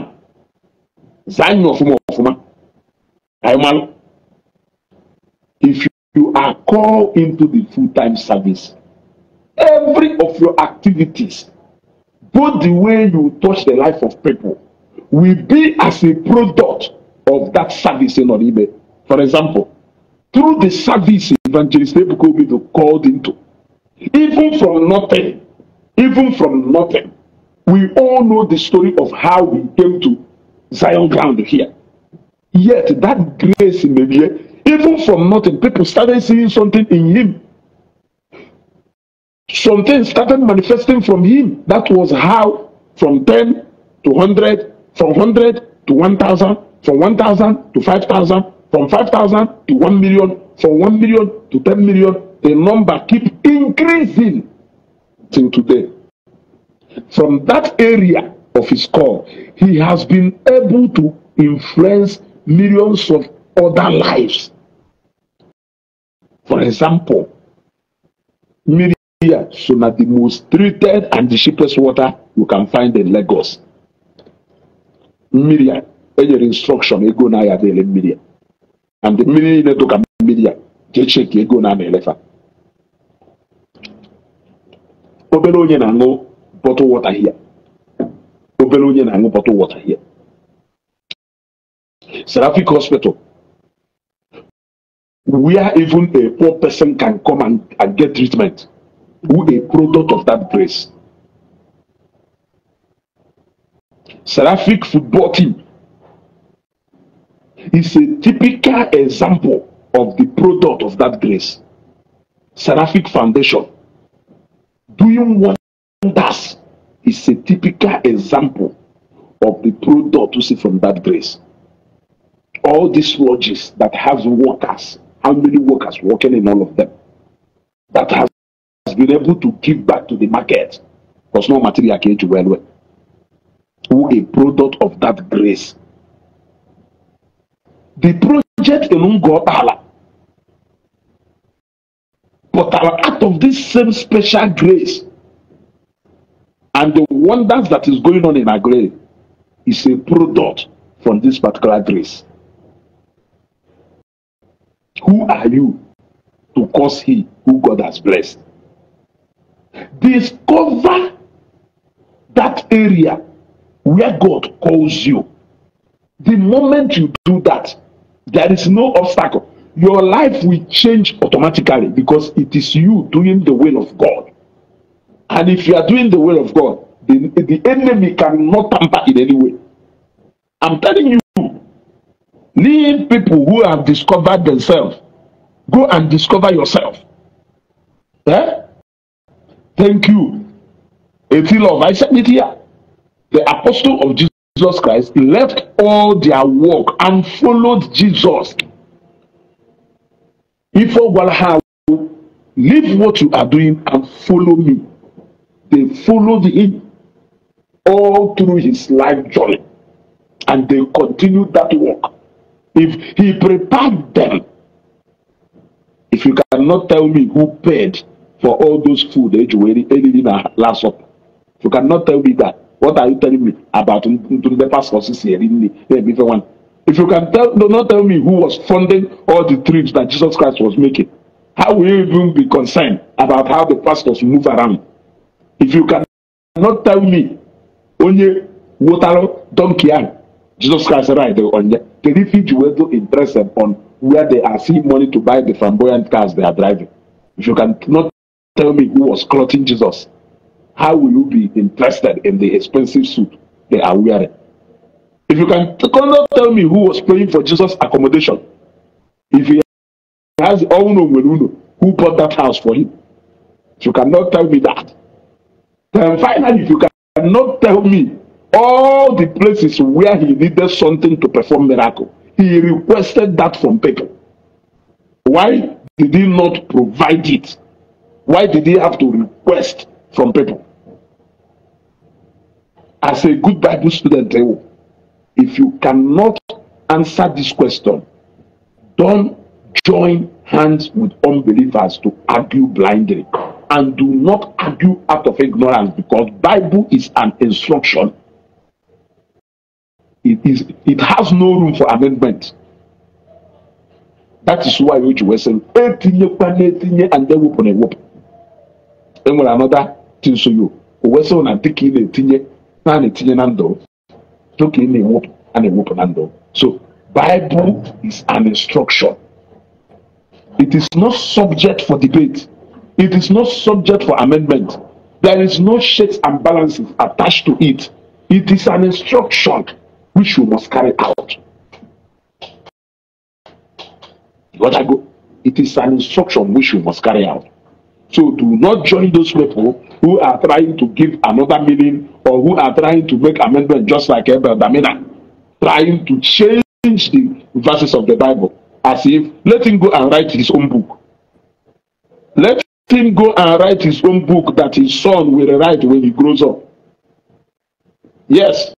Zaa nye ọfụma ọfụma. Anyị malụ. If you are called into the full-time service. Every of your activities, both the way you touch the life of people, will be as a product of that service in Oribe. For example, through the service evangelist Ebuka Obi to called into, even from nothing, even from nothing, we all know the story of how we came to Zion ground here. Yet that grace in the year Even from nothing, people started seeing something in him. Something started manifesting from him. That was how from 10 to 100, from 100 to 1,000, from 1,000 to 5,000, from 5,000 to 1 million, from 1 million to 10 million. The number keep increasing till today. From that area of his call, he has been able to influence millions of other lives. For example, Miria, so na the most treated and the cheapest water you can find in Lagos. Miria, any instruction, you go now at the Miria. And the Miria, you took a Miria, you check, you go na elefa. the Obele onye na-aṅụ bottle water here. Obele onye na-aṅụ bottle water here. Seraphic Hospital where even a poor person can come and, and get treatment who a product of that grace. Seraphic football team is a typical example of the product of that grace. Seraphic Foundation doing wonders is a typical example of the product we see from that grace. All these lodges that have workers how many workers working in all of them that has, been able to give back to the market because no material came to well well who a product of that grace the project alone got Allah but our out of this same special grace and the wonders that is going on in our grave is a product from this particular grace Who are you to curse he who God has blessed? Discover that area where God calls you. The moment you do that, there is no obstacle. Your life will change automatically because it is you doing the will of God. And if you are doing the will of God, the, the enemy cannot tamper in any way. I'm telling you, leave people who have discovered themselves go and discover yourself eh? thank you eti love i said it here the apostle of jesus christ left all their work and followed jesus ife gwara leave what you are doing and follow me they followed him all through his life journey and they continued that work If he prepared them, if you cannot tell me who paid for all those food that where ate in last supper, if you cannot tell me that, what are you telling me about the pastors here in eh, If you can tell, do not tell me who was funding all the trips that Jesus Christ was making, how will you even be concerned about how the pastors move around? If you cannot tell me onye wotaro donkey ahụ Jesus Christ ride on the refuge will to impress on where they are seeing money to buy the flamboyant cars they are driving. If you cannot tell me who was clothing Jesus, how will you be interested in the expensive suit they are wearing? If you can cannot tell me who was paying for Jesus' accommodation, if he has Owuno who bought that house for him, if you cannot tell me that, then finally, if you cannot tell me all the places where he needed something to perform miracle, he requested that from people. Why did he not provide it? Why did he have to request from people? As a good Bible student, eh, if you cannot answer this question, don't join hands with unbelievers to argue blindly. And do not argue out of ignorance because Bible is an instruction it, is, it has no room for amendment. That is why which was saying, and then we on a whoop. And when another thing so you, was on and taking a tinye, and a tinye nando, took in a whoop and a whoop nando. So, Bible is an instruction. It is not subject for debate. It is not subject for amendment. There is no shades and balances attached to it. It is an instruction. which you must carry out. What I go, It is an instruction which you must carry out. So do not join those people who are trying to give another meaning or who are trying to make amendment just like Abel Damina, trying to change the verses of the Bible as if letting go and write his own book. Let him go and write his own book that his son will write when he grows up. Yes,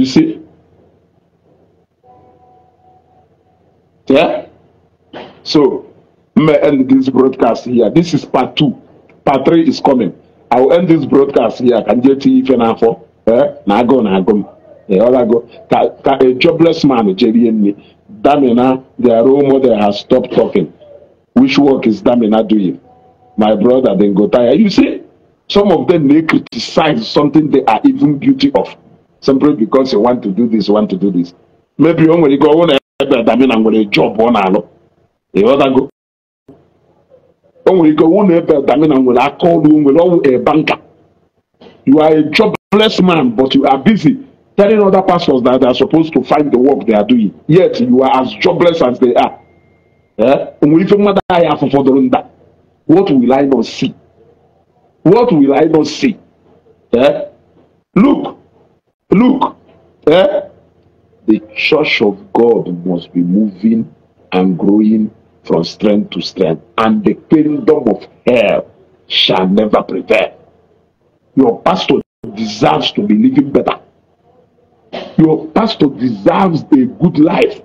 You see? Yeah? So, I'm going to end this broadcast here. This is part two. Part three is coming. I will end this broadcast here. Can you see if you're not Eh? Now go, now go. Yeah, all I go. Ka, a jobless man, Jerry Damina, their role model has stopped talking. Which work is Damina doing? My brother, then go tired. You see, some of them, they criticize something they are even guilty of simply because you want to do this want to do this maybe oh, e o nwere ike ọnwụ oh, na ebe adami na nwere job ọ na-alụ ịghọtago o nwere ike ọnwụ na ebe adami na nwere call. ọrụ nwere ọwụ a banker you are a jobless man but you are busy telling other pastors that they are supposed to find the work they are doing yet you are as jobless as they are eh? o nwere ife mmadụ ahụ afọ fọdụrụ nda what will I not see what will I not see eh? look Look, eh? the church of God must be moving and growing from strength to strength, and the kingdom of hell shall never prevail. Your pastor deserves to be living better. Your pastor deserves a good life.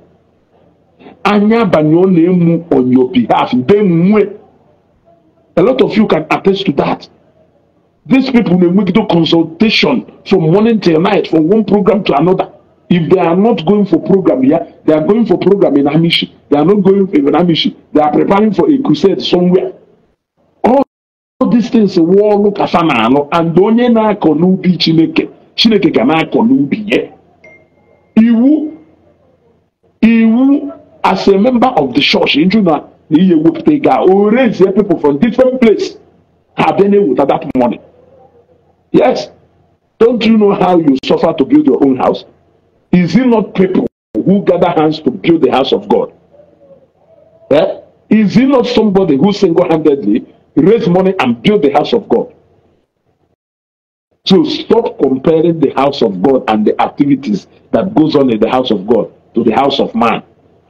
Anya abanye ọ na-emu on your behalf, mbe mmụọ. A lot of you can attest to that. These people will make the consultation from morning till night, from one program to another. If they are not going for program here, they are going for program in Amishi. They are not going for Amishi. They are preparing for a crusade somewhere. All these things war look as an and onye na-akọ n'ubi Chineke. Chineke ga na-akọ n'ubi ya. Iwu iwu as a member of the church nju na na ihe wepụta ego a o raise people from different place ha bịa na-eweta that money. Yes. Don't you know how you suffer to build your own house? Is it not people who gather hands to build the house of God? Eh? Is it not somebody who single handedly raised money and built the house of God? So stop comparing the house of God and the activities that goes on in the house of God to the house of man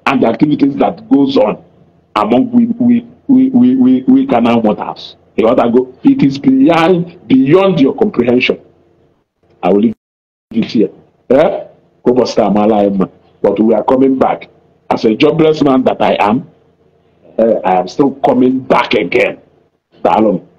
and the activities that goes on among we we we we we, we can what waters. You want to go? It is beyond beyond your comprehension. I will leave it here. Eh? But we are coming back. As a jobless man that I am, uh, I am still coming back again. Salome.